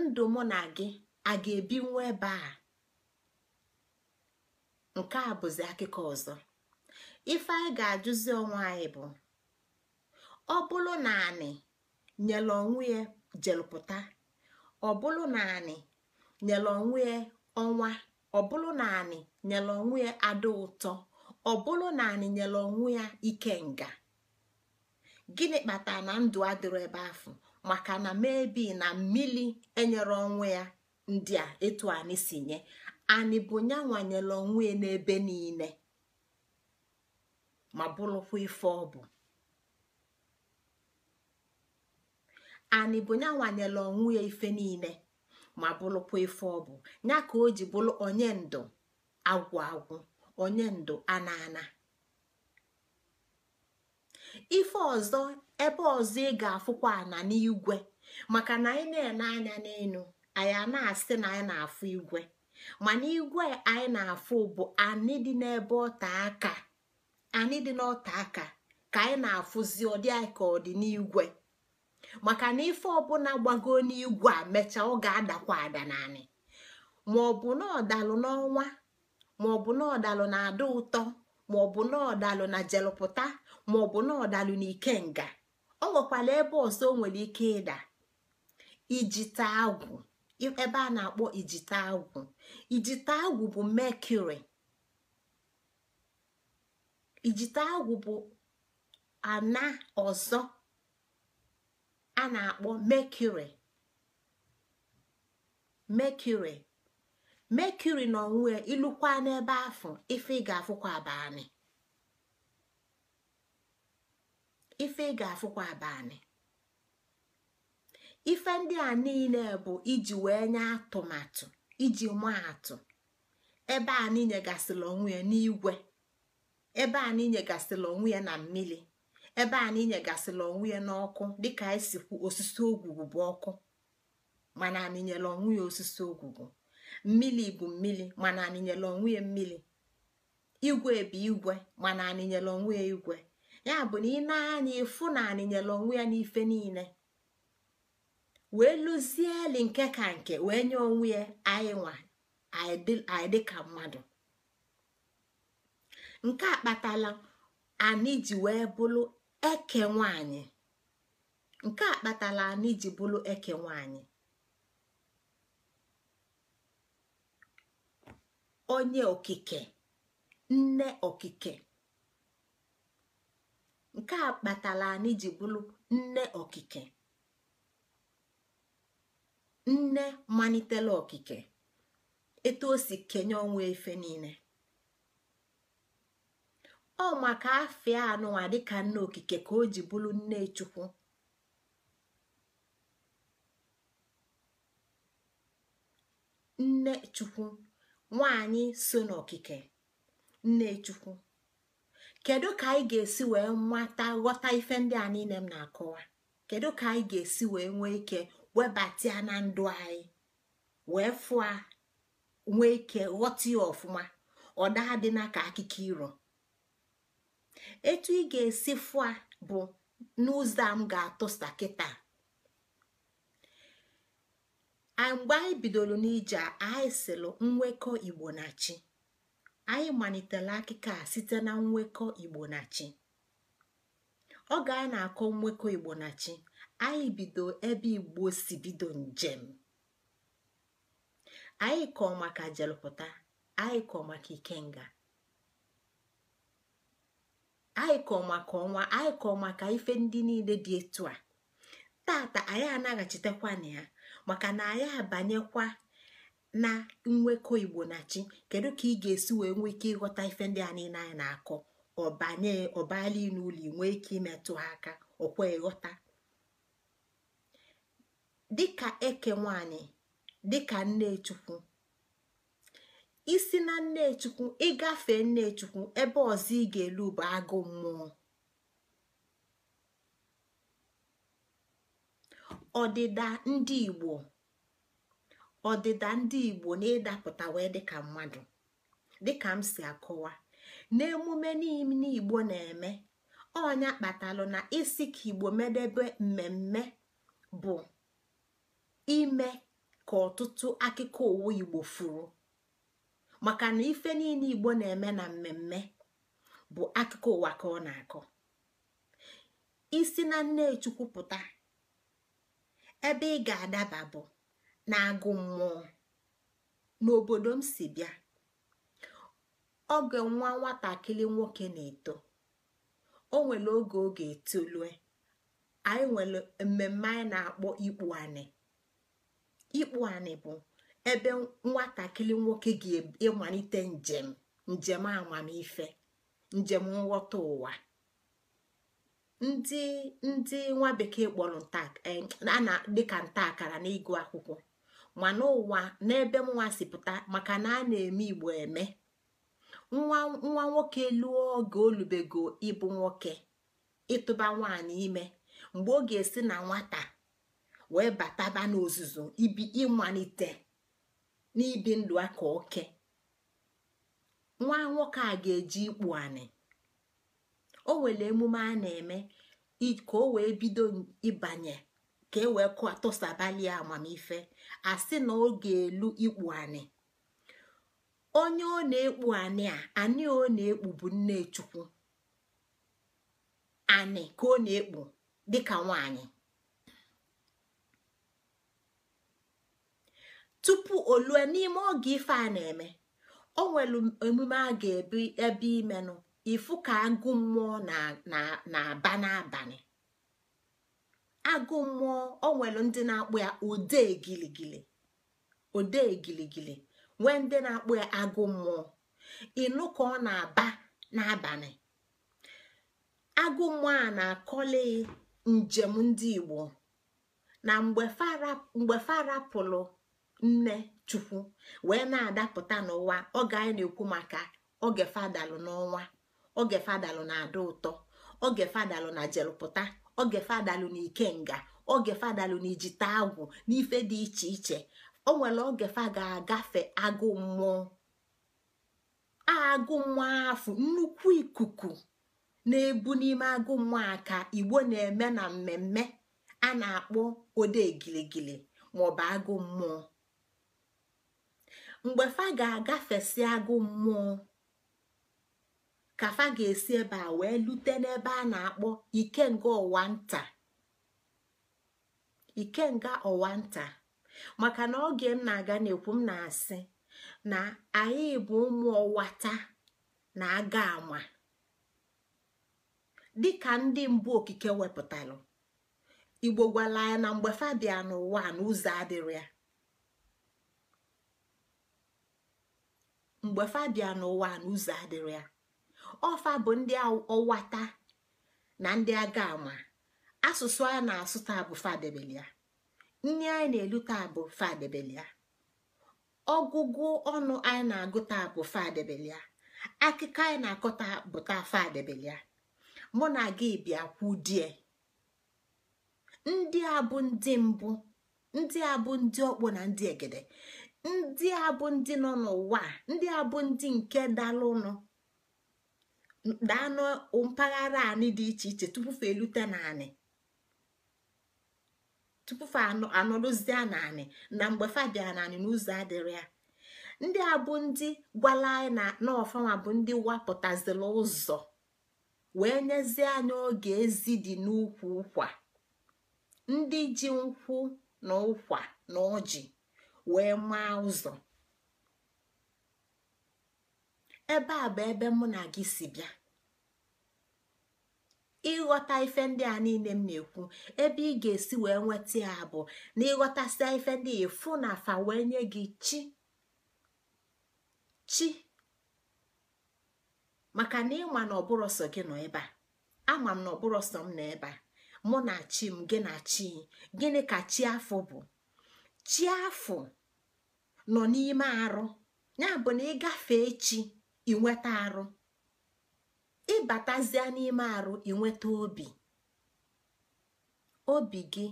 ndụ mụ na gị a ga-ebinwu ebe a nke a bụzi akụkọ ọzọ ife anyị ga-ajụzi onwe anyị bụ ọ bụrụ na anị nyere onwe ya jelụpụta ọ bụrụ na anị nyere onwe ya ọnwa ọ bụrụ na anị nyere onwe ya adị ụtọ ọ bụrụ na anị nyere onwe ya ikenga gịnị kpatara na ndụ adịrọ ebe ahụ maka na mebi na mmiri enyere onwe ya ndị a etu anyị si nye anyị bụ ya nwanyere onwe ya n'ebe niile ma bụrụkwa ife ọ bụ anị bụ ya nwanyela ya ife niile ma bụrụkwa ife ọ bụ ya ka o ji bụrụ onye ndụ agwụ agwụ onye ndụ ana ana ife ọzọ ebe ọzọ ị ga-afụkwa ana n'igwe maka na anyị na-ene anya n'elu anyị na-asị na anyị na-afụ igwe mana igwe anyị na-afụ bụ anyị dị n'ebe ọta aka dị n'ọta aka ka anyị na-afụzi ọdị anyị ka ọ dị n'igwe maka na ife ọbụla gbago n'igwe a mechaa ọ ga-adakwa ada naanị maọbụ na ọdalụ n'ọnwa maọbụ na ọdalụ na ada ụtọ maọbụ na ọdalụ na jelụpụta maọbụ na ọdalụ na ikenga ọ nwekwara ebe ọzọ o nwere ike ịda ijite agwụ ebe a na-akpọ ijite agwụ ijite agwụ bụ mekuri ijite agwụ bụ ana ọzọ a na-akpọ mekuri mekuri mekuri na onwe ilukwa n'ebe afọ ife ị ga-afụkwa abanị ife ị ga-afụkwa abalị ife ndị a niile bụ iji wee nye atụmatụ iji maa atụ ebe a niile gasịla onwe ya n'igwe ebe a niile gasịla onwe ya na mmiri ebe a na inyegasịla onwe ya n'ọkụ dịka anyị e si kwu osisi ogwugwu bụ ọkụ mana anyị nyela onwe ya osisi ogwugwu Mmili bụ mmili, mana anyị nyela onwe ya mmili igwe bụ igwe mana anyị nyela onwe ya igwe ya bụ na ị na-anya ịfụ na anyị nyela onwe ya n'ife niile wee lụzieli nke ka nke wee nye onwe ya anyị nwa anyị dịka mmadụ nke a kpatala anyị ji wee bụrụ eke nwanyị nke a kpatala anyị ji bụrụ eke nwanyị onye okike nne okike nke a kpatala anyị ji bụrụ nne okike nne malitela okike etu o si kenye ọnwa efe niile ọ maka afịa anụnwa dịka nne okike ka o ji bụrụ nne chukwu nne chukwu nwanyị so n'okike nne chukwu kedu ka anyị ga-esi wee nwata ghọta ife ndị a niile m na-akọwa kedu ka anyị ga-esi wee nwee ike webatia na ndụ anyị wee fụa nwee ike ghọta ya ọfụma ọ daa dị na ka akụkọ iro etu ị ga-esi fụa bụ n'ụzọ a m ga-atụsa a mgbe anyị bidoro n'ije anyị sịlụ nwekọ igbo na chi anyị malitere akụkọ a site na nwekọ igbo na chi oge anyị na-akọ nwekọ igbo na chi anyị bido ebe igbo si bido njem anyị kọọ maka jelụpụta anyị kọọ maka ikenga anyị maka ọnwa anyị kọọ maka ife ndị niile dị etu a tata anyị anaghachitekwa na ya maka na anyị abanyekwa na nwekọ igbo na chi kedu ka ị ga-esi wee nwee ike ịghọta ife ndị a niile anyị na-akọ ọbanye ọbala n'ụlọ nwee ike imetụ ha aka ọkwa ịghọta dịka eke nwanyị dịka nne chukwu isi na nnechukwu ịgafe nnechukwu ebe ọzọ ị ga-elu bụ agụ mmụọ ọdịda ndị igbo ọdịda ndị igbo na ịdapụta wee dịka mmadụ dịka m si akọwa n'emume niile igbo na-eme ọnya kpatalụ na isi ka igbo medebe mmemme bụ ime ka ọtụtụ akụkọ owu igbo furu maka na ife niile igbo na-eme na mmemme bụ akụkọ ụwa ka ọ na-akọ isi na nnechukwu pụta ebe ị ga-adaba bụ na agụ mmụọ n'obodo m si bịa oge nwa nwatakịrị nwoke na-eto o nwere oge oge etolue anyị nwere mmemme anyị na-akpọ ikpu anị bụ ebe nwatakịrị nwoke ga-ịmalite njem njem amamife njem nghọta ụwa ndị ndị nwa bekee kpọrọ eh, na dịka nta akara n'ịgụ akwụkwọ mana ụwa n'ebe nwa si pụta maka na a na-eme igbo eme nwa nwa nwoke luo oge olubego ịbụ nwoke ịtụba nwaanyị ime mgbe ọ ga-esi na nwata wee bataba n'ozuzu ibi ịmalite n'ibi ndụ aka oke nwa nwoke a ga-eji ikpu anị o nwere emume a na-eme ka o wee bido ịbanye ka e wee tụsabalie amamife asị na ọ ga-elu ikpu anị onye ọ na-ekpu anị a anị ọ na-ekpu bụ nne chukwu anị ka ọ na-ekpu dịka nwanyị tupu o lue n'ime oge ife a na-eme o nwere emume a ga-ebi ebe imenụ ifu ka agụ mmụọ na-aba n'abalị agụ mmụọ o nwere ndị na-akpụ ya ode giligili nwee ndị na-akpụ ya agụ mmụọ ịnụ ka ọ na-aba n'abalị agụ mmụọ a na akọlị njem ndị Igbo na mgbe farapụlụ nne chukwu wee na-adapụta n'ụwa oge anyị na-ekwu maka oge fadalụ n'ọnwa oge fadalụ na adị ụtọ oge fadalụ na jelụpụta oge fadalụ na ikenga oge fadalụ na ijite agwụ n'ife dị iche iche o nwere oge fa ga-agafe agụ mmụọ agụ mmụọ afụ nnukwu ikuku na-ebu n'ime agụ mmụọ aka igbo na-eme na mmemme a na-akpọ ode giligili maọbụ agụ mmụọ mgbe fa ga-agafesi agụ mmụọ ka fa ga-esi ebe a wee lute n'ebe a na-akpọ ikenga ọwa nta nga ọwa nta maka na oge m na-aga n'ekwu m na-asị na anyị bụ ụmụ ọwata na aga ama dịka ndị mbụ okike wepụtara igbo gwala ya na mgbe fa bịa n'ụwa n'ụzọ adịrị ya mgbe fa n'ụwa n'ụzọ adịrị ya ọfa bụ ndị ọwata na ndị aga ama asụsụ a na-asụ taa bụ fadebelia nri anyị na-elu taa bụ fadebelia ọgụgụ ọnụ anyị na-agụ taa bụ fadebelia akụkọ anyị na-akọ taa bụ taa fadebelia mụ na gị bịa kwu ndị a bụ ndị mbụ ndị a bụ ndị ọkpọ na ndị egede ndị a bụ ndị nọ n'ụwa ndị a bụ ndị nke dalụnụ daanụ mpaghara anị dị iche iche tupu fa elute naanị tupu fa anọrụzie naanị na mgbe fa bịara naanị n'ụzọ adịrị ya ndị a bụ ndị gwala anyị na ọfanwa bụ ndị wapụtazila ụzọ wee nyezie anyị oge ezi dị n'ukwu ụkwa ndị ji nkwụ na ụkwa na ọjị wee maa ụzọ ebe a bụ ebe mụ na gị si bịa ịghọta ife ndị a niile m na-ekwu ebe ị ga-esi wee nweta ya bụ na ịghọtasịa ife ndị efu na afa wee nye gị chi chi maka na ịma na gị nọ ebe a ama m na ọbụrụ sọ m nọ ebe a mụ na chi m gị na chi gịnị ka chi afọ bụ chi nọ n'ime arụ ya bụ na gafee chi inweta arụ ịbatazie n'ime arụ inweta obi obi gị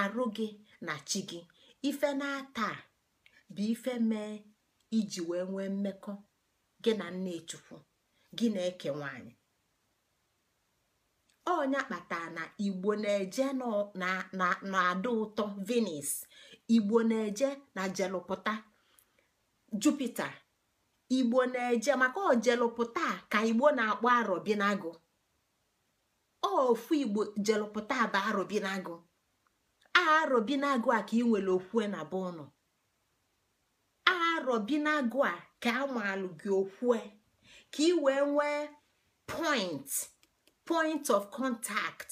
arụ gị na chi gị ife na-ata bụ ife mee iji wee nwee mmekọ gị na nne chukwu gị na-eke nwanyị onya kpatara na igbo na-eje na-ada ụtọ venis igbo na-eje na jelụpụta jupita igbo na-eje maka ojelụpụta ka igbo na-akpọ ofu igbo jelụpụta bụ arọbinagụ arọbinagụ a ka ị nwere okwue na be ụnụ arọbinagụ a ka amalụ gị okwue ka ị wee nwee point point of contact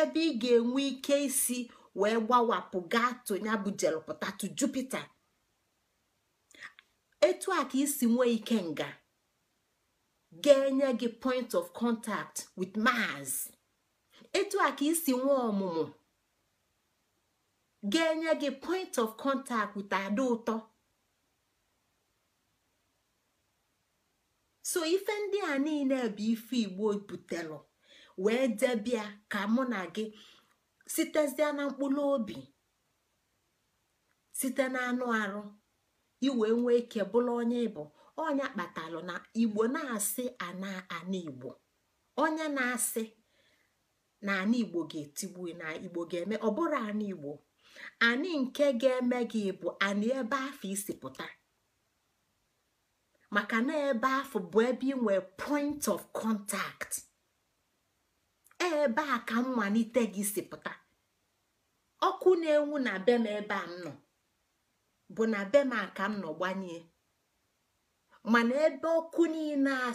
ebe ị ga-enwe ike isi wee gbawapụ gaa to ya bụ jelpụta jupiter etu a ka isi nwee ike nga ga-enye gị point of contact with mars etu a ka isi nwee ọmụmụ ga-enye gị point of contact with ada ụtọ so ife ndị a niile bụ ife igbo butelụ wee debia ka mụ na gị sitezie na mkpụrụ obi site na anụ arụ iwe nwee ike bụla onye ịbụ ọnya kpatalụ na igbo na-asị ana ana igbo onye na-asị na ana igbo ga-etigbu na igbo ga-eme ọbụrụ bụrụ ana igbo anị nke ga-eme gị bụ anị ebe afọ isi pụta maka na ebe afọ bụ ebe ị nwere point of contact. ebe a ka mmalite gị si pụta ọkụ na-enwu na m ebe a m nọ bụ na be aka m nọ gbanye mana ebe ọkụ niile a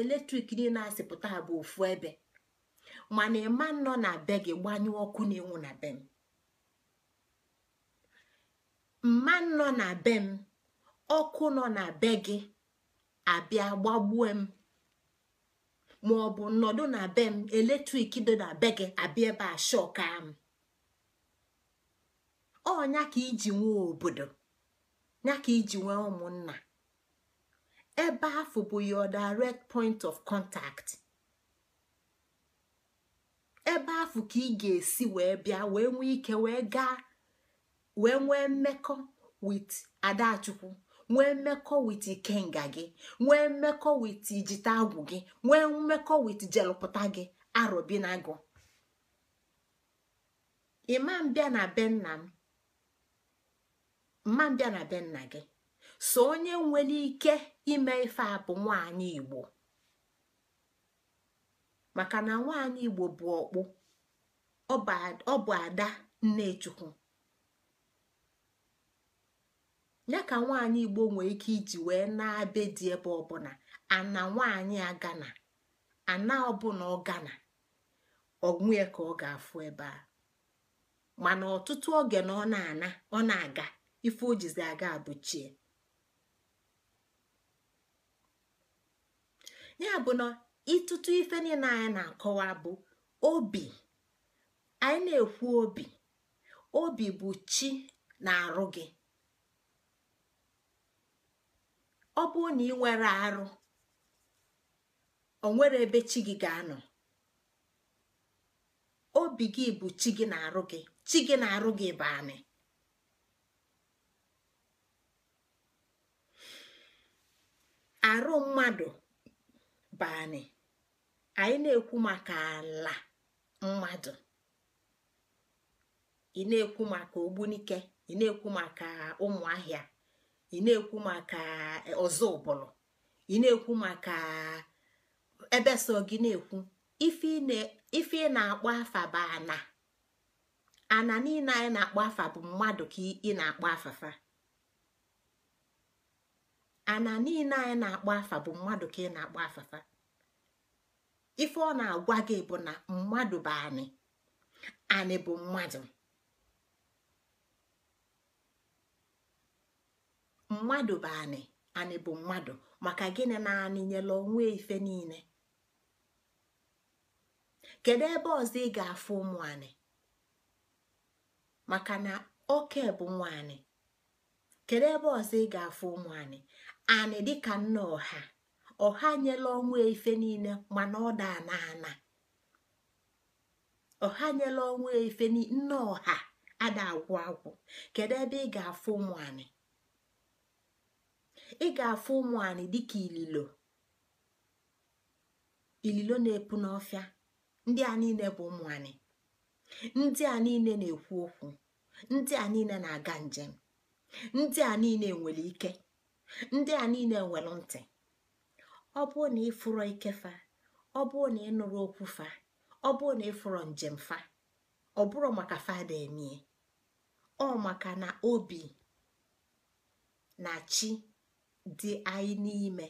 eletrik niile a sịpụta bụ ofu ebe mana ịma nọ na be gị gbanye ọkụ na-enwu na be m mma nọ na be m ọkụ nọ na be gị abịa gbagbuo m maọbụ nnọdụ na be m eletrik dị na be gị abịa ebe a shọka m ọnya ka iji nwee obodo nyaka iji nwee ụmụnna ebe afọ bụ your direct point of contact ebe afọ ka ị ga-esi wee bịa wee nwee ike wee gaa wee nwee mmekọ with adachukwu nwee mmekọ wit gị nwee mmekọ wit agwụ gị nwee mmekọ wit jelụpụta gị arobinago ịma na be nna na gị so onye nwere ike ime ife a bụ nwaanyị igbo maka na nwaanyị igbo bụ ọkpụ ọ bụ ada nnechukwu ya ka nwaanyị igbo nwere ike iji wee na-abe dị ebe ọbụla ana nwaanyị agana ana ọbụla ọ gana ọgwụnye ka ọ ga-afụ ebe a mana ọtụtụ oge na ọ na-ana ọ na-aga ife ojizi aga abụchie ya bụ na ịtụtụ ife niile anyị na-akọwa bụ obi anyị na-ekwu obi obi bụ chi na-arụ gị ọ bụrụ na ị nwere arụ o nwere ebe chi gị ga-anọ obi gị bụ chi gị na-arụ gị chi gị na-arụ gị bụ anị arụ mmadụ bụ anị anyị na-ekwu maka ala mmadụ ị na-ekwu maka ogbunike ị na-ekwu maka ụmụ ahịa ị na-ekwu maka e, ọzọ ụbụlụ ị na-ekwu maka ebe so gị na-ekwu ife ị na-akpọ afa bụ ana ana niile anyị na-akpọ afa bụ mmadụ ka ị na-akpọ afafa ana niile anyị na-akpọ afa bụ mmadụ ka ị na-akpọ afafa ife ọ na-agwa gị bụ na mmadụ bụ anị anị bụ mmadụ mmadụ bụ anị anị bụ mmadụ maka gịnị na anị nyela onwe ife niile kedu ebe ọzọ ị ga-afụ ụmụ anị maka na oke bụ nwa anị kedu ebe ọzọ ị ga-afụ ụmụ anị anị dịka nna ọha ọha nyela onwe ife niile mana ọ da ana ana ọha nyela onwe ife nne ọha ada agwụ agwụ kedu ebe ị ga-afụ ụmụ anị ị ga-afụ ụmụ dịka ililo na-epu n'ọfịa ndị a niile bụ ụmụ ndị a niile na-ekwu okwu ndị a niile na-aga njem ndị a niile nwere ike ndị a niile nwere ntị ọ bụrụ na ịfụrọ fa, ọ bụrụ na ịnụrụ okwu fa ọ bụrụ na ịfụrọ njem fa ọ bụrụ maka fada emie ọ maka na obi na chi dị anyị n'ime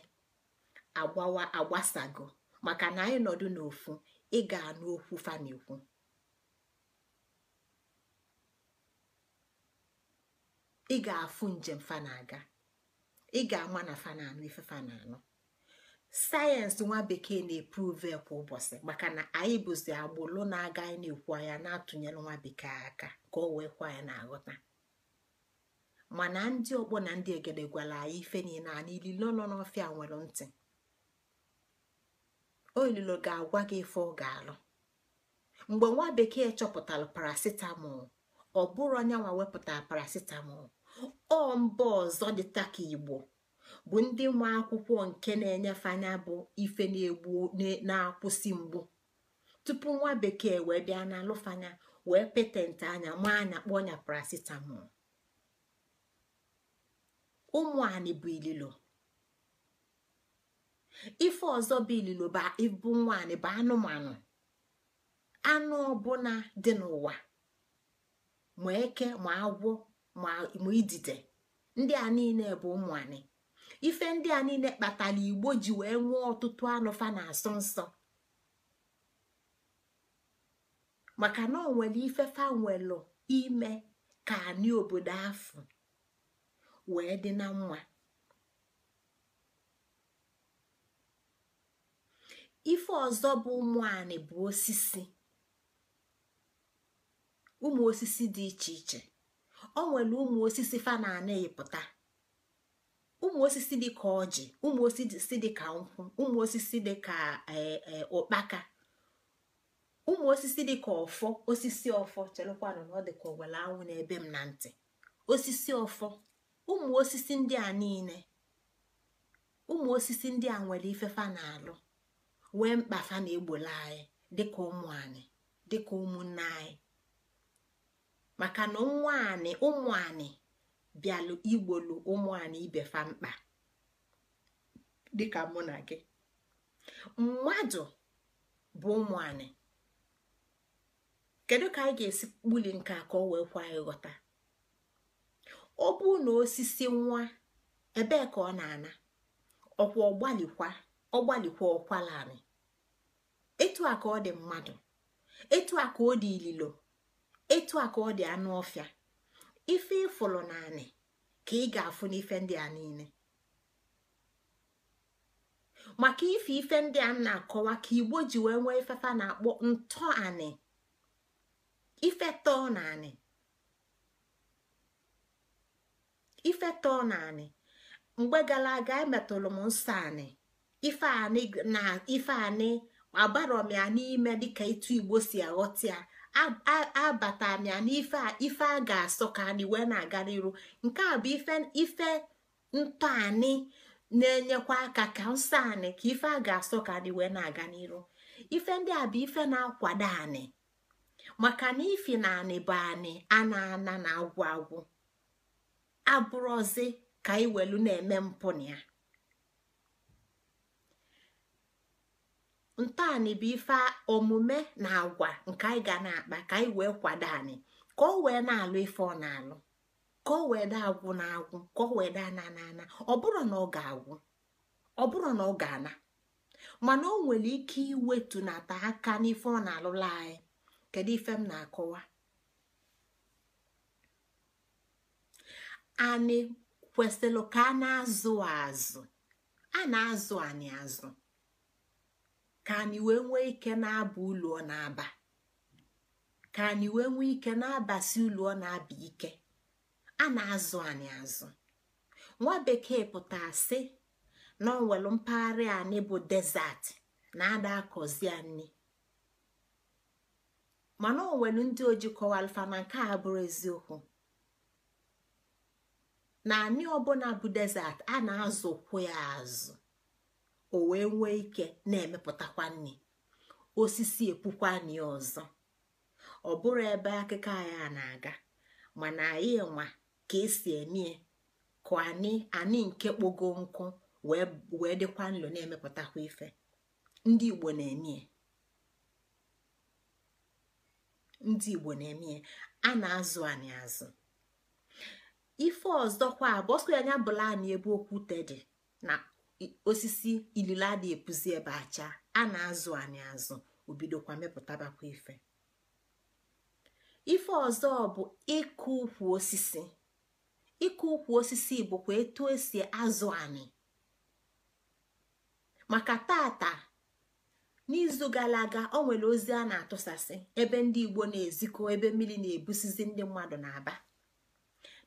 agbawa agbasago maka na anyị nọdụ n'ofu ị ga-anụ okwu fanekwu ị ga-afụ njem fana-aga ị ga-ama na fana-anụ ife fana-anụ sayensị nwa bekee na-epruve kwa ụbọchị maka na anyị bụzi agbụlụ na-aga anyị na-ekwu anya na-atụnyere nwa bekee aka ka o wee kwa anyị na-aghọta mana ndị ọkpọ na ndị egede gwara anyị ife niile anyị ililo nọ n'ọfịa nwere ntị olilo ga-agwa gị ife ọ ga-alụ mgbe nwa bekee chọpụtara paracetamol ọ bụrụ anyanwa wepụtara paracetamol ọ mba ọzọ dị ka igbo bụ ndị nwa akwụkwọ nke na-enyefe anya bụ ife na-egbu na-akwụsị mgbu tupu nwa bekee wee bịa na alụfanya wee petentị anya ma anya kpọọ nya paracetamol ụmụ bụ ililo ife ọzọ bụ ililo bụ nwanyị bụ anụmanụ anụ ọbụla dị n'ụwa ma eke ma agwọ ma idide ndị a niile bụ ụmụ ife ndị a niile kpatara igbo ji wee nwee ọtụtụ anụfa na asọ nsọ maka na ọ nwere ifefa nwelụ ime ka anyị obodo afọ wee dị na mma ife ọzọ bụ ụmụ anị bụ osisi ụmụ osisi dị iche iche ọ nwere ụmụ osisi fa na anaghịpụta ụmụ osisi dị ka ọjị ụmụ osisi dị ka nkwụ ụmụ osisi dị ka e, e, ụkpaka ụmụ osisi dị ka ọfọ osisi ọfọ chelụkwanụ na ọ dị ka owele anwụ n'ebe m na ntị osisi ọfọ ụmụ osisi ndị a niile ụmụ osisi ndị a nwere ifefa na-alụ wee mkpa fa na-egbolu anyị dịka ụmụ anyị dịka ụmụnne anyị maka na nwa anyị ụmụ anyị bịalụ igbolu ụmụ anyị ibe fa mkpa dịka mụ na gị mmadụ bụ ụmụ anyị kedu ka anyị ga-esi kpuli nke a ka ọ wee kwa ghọta. ọ bụrụ na osisi nwa ebee ka ọ na-ana ọkwa ọgbalikwa ọgbalikwa ọkwala anị etu a ka ọ dị mmadụ etu a ka ọ dị ililo etu a ka ọ dị anụ ọfịa ife ịfụlụ naanị ka ị ga-afụ n'ife ndị a niile maka ife ife ndị a na-akọwa ka igbo ji wee nwee ifefa na-akpọ ntọanị ife tọọ na anị ifeto na anị mgbe gara aga emetụrụ m nsọ anị ife anị na ife anị abarọ m ya n'ime dịka etu igbo si aghọta ya abata m ya n'ife ife a ga-asọ ka anyị wee na aga n'iru nke a bụ ife ife ntọ anyị na-enyekwa aka ka nsọ anị ka ife a ga-asọ ka anyị wee na-aga n'iru ife ndị a bụ ife na-akwado anyị maka na ifi na anị bụ anyị a na-ana na agwụ agwụ abụrọzi ka anyị na-eme mpụ na ya ntọanị bụ ife omume na agwa nke anyị ga na-akpa ka anyị wee kwado anyị ka o wee na-alụ ife ọ na-alụ ka o wee daa agwụ na agwụ ka o wee daa na ana ọ bụrụ na ọ ga-agwụ ọ bụrụ na ọ ga-ana mana o nwere ike iwetu na iwetunata aka n'ife ọ na-alụla anyị kedu ife m na-akọwa anị kwesịrị ka a na-azụ azụ a na-azụ anyị azụ ka anyị wee nwee ike na-aba ụlọ na-aba ka anyị wee nwee ike na-abasi ụlọ na-aba ike a na-azụ anyị azụ nwa bekee pụtara sị na ọ nwere mpaghara anyị bụ desert na ada akọzi anyị mana o ndị oji kọwalfa na nke a bụrụ eziokwu na anị ọbụla bụ desert a na-azụkwu ya azụ o wee nwee ike na-emepụtakwa nri osisi epukwa nri ọzọ ọ bụrụ ebe akụkọ anyị na-aga mana anyị nwa ka esi eme ka anyị nke kpogo nkụ wee dịkwa nlo na-emepụtakwa ife ndị igbo na-eme ndị igbo na emie a na-azụ anyị azụ ife ọzọkwa ya anya bụlani ebe okwute dị na osisi ilila dị epuzi ebe acha a na-azụ anyị azụ obidokwa mepụtabakwa ife ife ọzọ bụ ịkụ ukwu osisi ịkụ ukwu osisi bụkwa etu esi azụ anyị maka tata n'izu gara aga o nwere ozi a na-atụsasị ebe ndị igbo na-ezikọ ebe mmiri na-ebusizi ndị mmadụ na-aba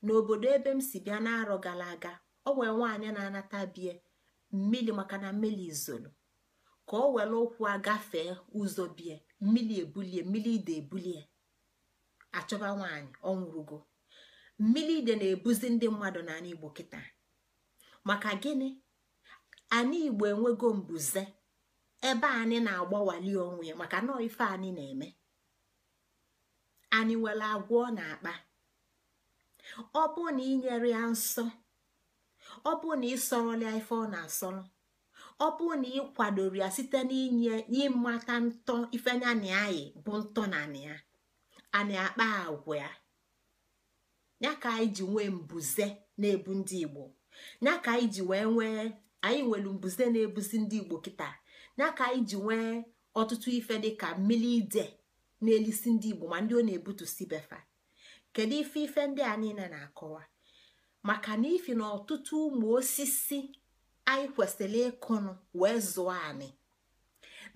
n'obodo ebe m si bịa n'arọ gara aga ọ wee nwaanyị na-anata bie mmiri maka na mmiri izolo ka o were ụkwụ agafee ụzọ bie mmiri ebulie mmiri ide ebulie achọba nwaanyị ọ nwụrụgo mmiri ide na-ebuzi ndị mmadụ n'ala igbo kịta maka gịnị anyị igbo enwego mbuze ebe anyị na-agbawali onwe ya maka na ife anyị na-eme anyị nwere agwọ na akpa ọ bụ na inyere ya nsọ ọ bụ na ịsọrọla ya ife ọ na-asọrọ ọ bụ na ịkwadoro ya site n'inye n'ịmata ntọ ife ya na anyị bụ ntọ na ya ana akpa agwa ya ya ka anyị ji nwee mbuze na-ebu ndị igbo ya ka anyị ji wee nwee anyị nwere mbuze na-ebuzi ndị igbo kịta ya ka anyị ji nwee ọtụtụ ife dịka mmiri ide na-elisi ndị igbo ma ndị ọ na ebutu si befa kedu ife ife ndị a niile na-akọwa maka na ifi na ọtụtụ ụmụ osisi anyị kwesịrị ịkụnụ wee zụọ anyị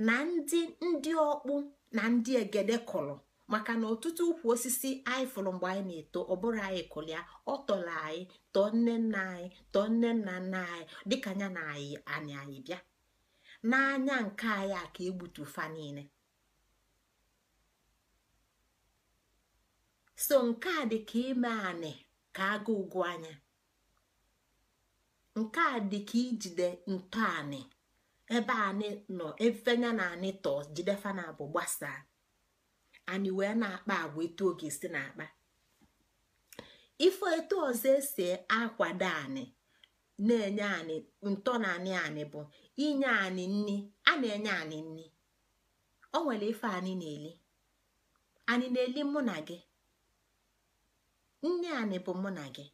na ndị ndị ọkpụ na ndị egede kụrụ maka na ọtụtụ ukwu osisi anyị fụrụ mgbe anyị na-eto ọ bụrụ anyị kụrụ ya ọ tọrọ anyị tọọ nne nna anyị tọọ nne nna nna anyị dịka anya na anyị anyị bịa n'anya nke anyị a ka egbutu fa niile so nke a dị ka ime anị ka agụ ụgwọ anya nke a dị ka ijide ntọanị ebe anị nọ efenya na anị tọọ jidefa na abụ gbasaa anyị wee na-akpa agwa etu oge si na-akpa ife etu ọzọ esi akwado anị na-enye anyị ntọ na anị anyị bụ inye anyị nni a na-enye anyị nni o nwere ife anyị na-eli anyị na-eli mụ na gị nne anị bụ mụ na gị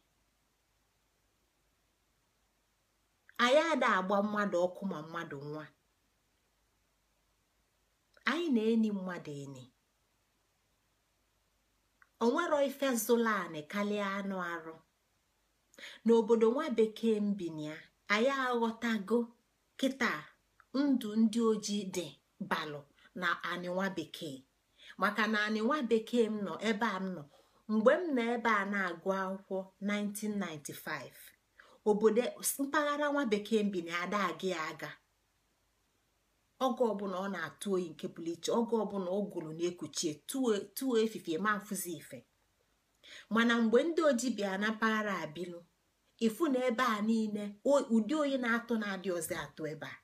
anyị ada agba mmadụ ọkụ ma mmadụ nwa anyị na-eni mmadụ eni onwero ife zụla anị karịa anụ arụ n'obodo nwa bekee mbinya anyị aghọtago kita ndụ ndị ojii dị balụ na anị nwa bekee maka na anị nwa bekee m nọ ebe a m nọ mgbe m nọ ebe a na-agụ akwụkwọ 1995 obodo mpaghara nwa bekee mbi na ada aga ya aga oge ọbụla ọ na-atụ oyi nke pụrụ iche oge ọbụla ọ gụrụ na-ekuchie tụọ efifie ma mfụzi ife mana mgbe ndị oji bịa na mpaghara abilu ifu na ebe a niile ụdị oyi na-atụ na-adị ọzọ atụ ebe a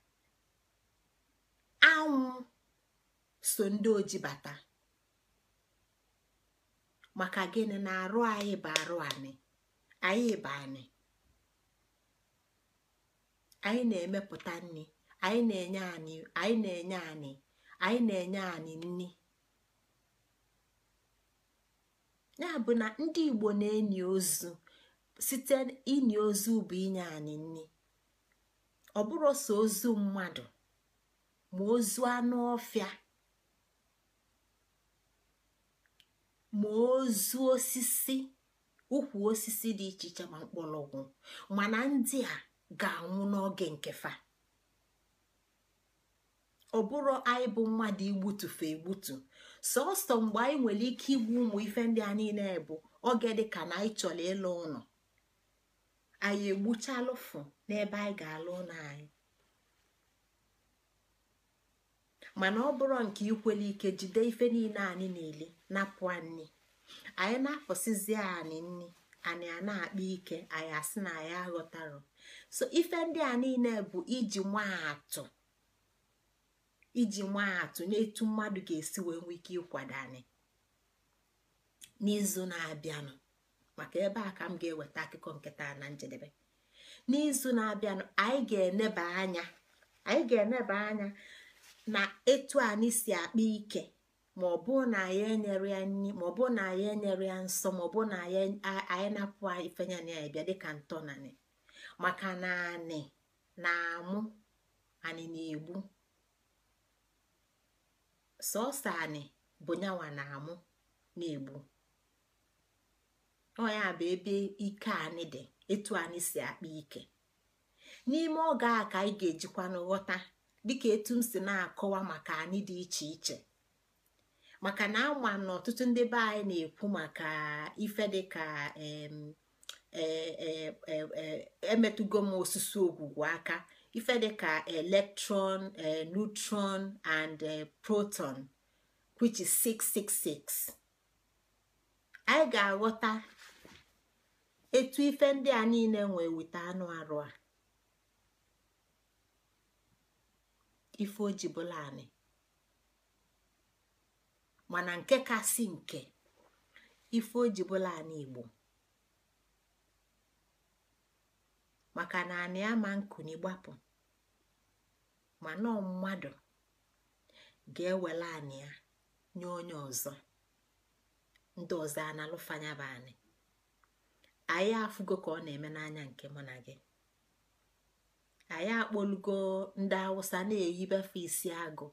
anwụ so ndị oji bata maka gịnị na arụ anyị bụ arụ anyị anyị bụ anyị anyị na-emepụta nri anyị na-enye anyị anyị na-enye anyị anyị na-enye anyị nri ya bụ na ndị Igbo na-enyi ozu site inyi ozu bụ inye anyị nri ọ bụrụ ozu mmadụ ma ozu anụ ọfịa ma ozu osisi ukwu osisi dị iche iche ma mgbọrọgwụ mana ndị a ga-anwụ n'oge fa ọ bụrụ anyị bụ mmadụ igbutufe egbutu sọsọ mgbe anyị nwere ike igbu ụmụ ife ndị a niile bụ oge dị ka na anyị chọrọ ịlụ ụlọ anyị egbuchalụfụ n'ebe anyị ga-alụ ụlọ anyị mana ọ bụrụ nke ikwela ike jide ife niile anyị na-ele napụ anyị anyị na-afọsizie anyị nni anyị a na-akpa ike anyị asị na anyị aghọtarụ so ife ndị a niile bụ iji nwaatụ iji nwaatụ n'etu mmadụ ga-esi wee nwee ike ịkwado anyị n'izu na-abịanụ maka ebe a ka m ga-eweta akụkọ nketa na njedebe n'izu na-abịanụ anyị ga-eneba anya anyị ga-eneba anya na etu anyị si akpa ike ma ọ bụrụ na anyị enyere ya nri ma ọ bụrụ na anyị enyere ya nsọ na anyị ifenya na ya bịa dịka ntọnanị maka na anị na-amụ anị na-egbu sọsọ anị bụ nyawa na-amụ na-egbu ọ ya bụ ebe ike anyị dị etu anyị si akpa ike n'ime oge a ka anyị ga-ejikwa n'ghọta dịka etu m si na-akọwa maka anyị dị iche iche maka na ama na ọtụtụ ndị be anyị na-ekwu maka ife dịka e, e, e, emetụgo m osisi ogwugwu aka ife dịka electron neutron and proton which is 666 anyị ga-aghọta etu ife ndị a niile nwee weta anụ arụ a ife ojibụlanị mana nke kasị nke ife ojibụla anị igbo maka na anị ama nkuni gbapụ mana mmadụ ga-ewela anị ya nye onye ọzọ ndị ọzọ a na bụ anị anyị afụgo ka ọ na-eme n'anya nke mụ na gị anyị akpọlugo ndị awụsa na-eyibefe isi agụ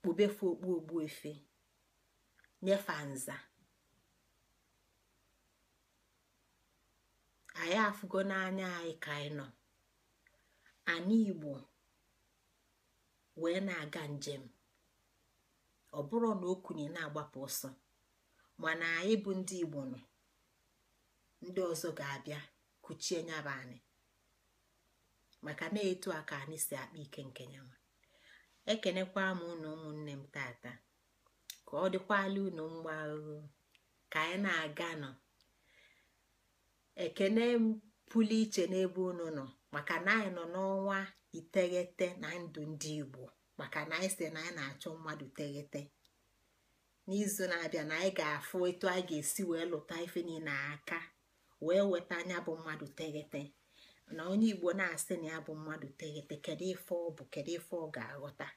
kpubefe okpu efe nyefe nza anyị afụgo n'anya anyị ka anyị nọ anyị igbo wee na-aga njem ọ bụrụ na okunye na-agbapụ ọsọ mana anyị bụ ndị igbo nọ ndị ọzọ ga-abịa kuchie anyị maka na-etu aka anyị si akpa ike nke nyanwa ekenekwa m unu ụmụnne m tata ka ọ dịkwala unu mgba ahụhụ ka anyị na-aga nọ ekene m pụlụ iche n'ebe unu nọ maka na anyị nọ n'ọnwa iteghete na ndụ ndị Igbo maka na anyị si na anyị na-achọ mmadụ teghete n'izu na-abịa na anyị ga-afụ etu anyị ga-esi wee lụta ife niile aka wee weta anya bụ mmadụ teghete na onye igbo na-asị na ya bụ mmadụ teghete kedu ife ọ bụ kedu ife ọ ga-aghọta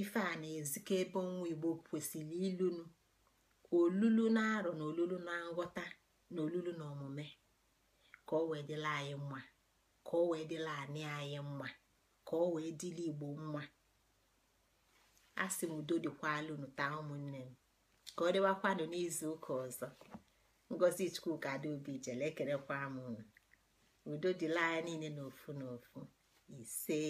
ife a na ezike ebe ọnwa igbo kwesịrị ilunu olulu na arọ na olulu na nghọta na olulu na omume ka ọ wee dịla anyị mma ka ọ wee dịla anị anyị mma ka ọ wee dịla igbo mma a sị m udo dịkwalunu taa ụmụnne m ka ọ dịwakwanụ n'izu ụka ọzọ ngozi chukwuka adaobi jele ekerekwa m udo dịla anya niile n'ofu n'ofu ise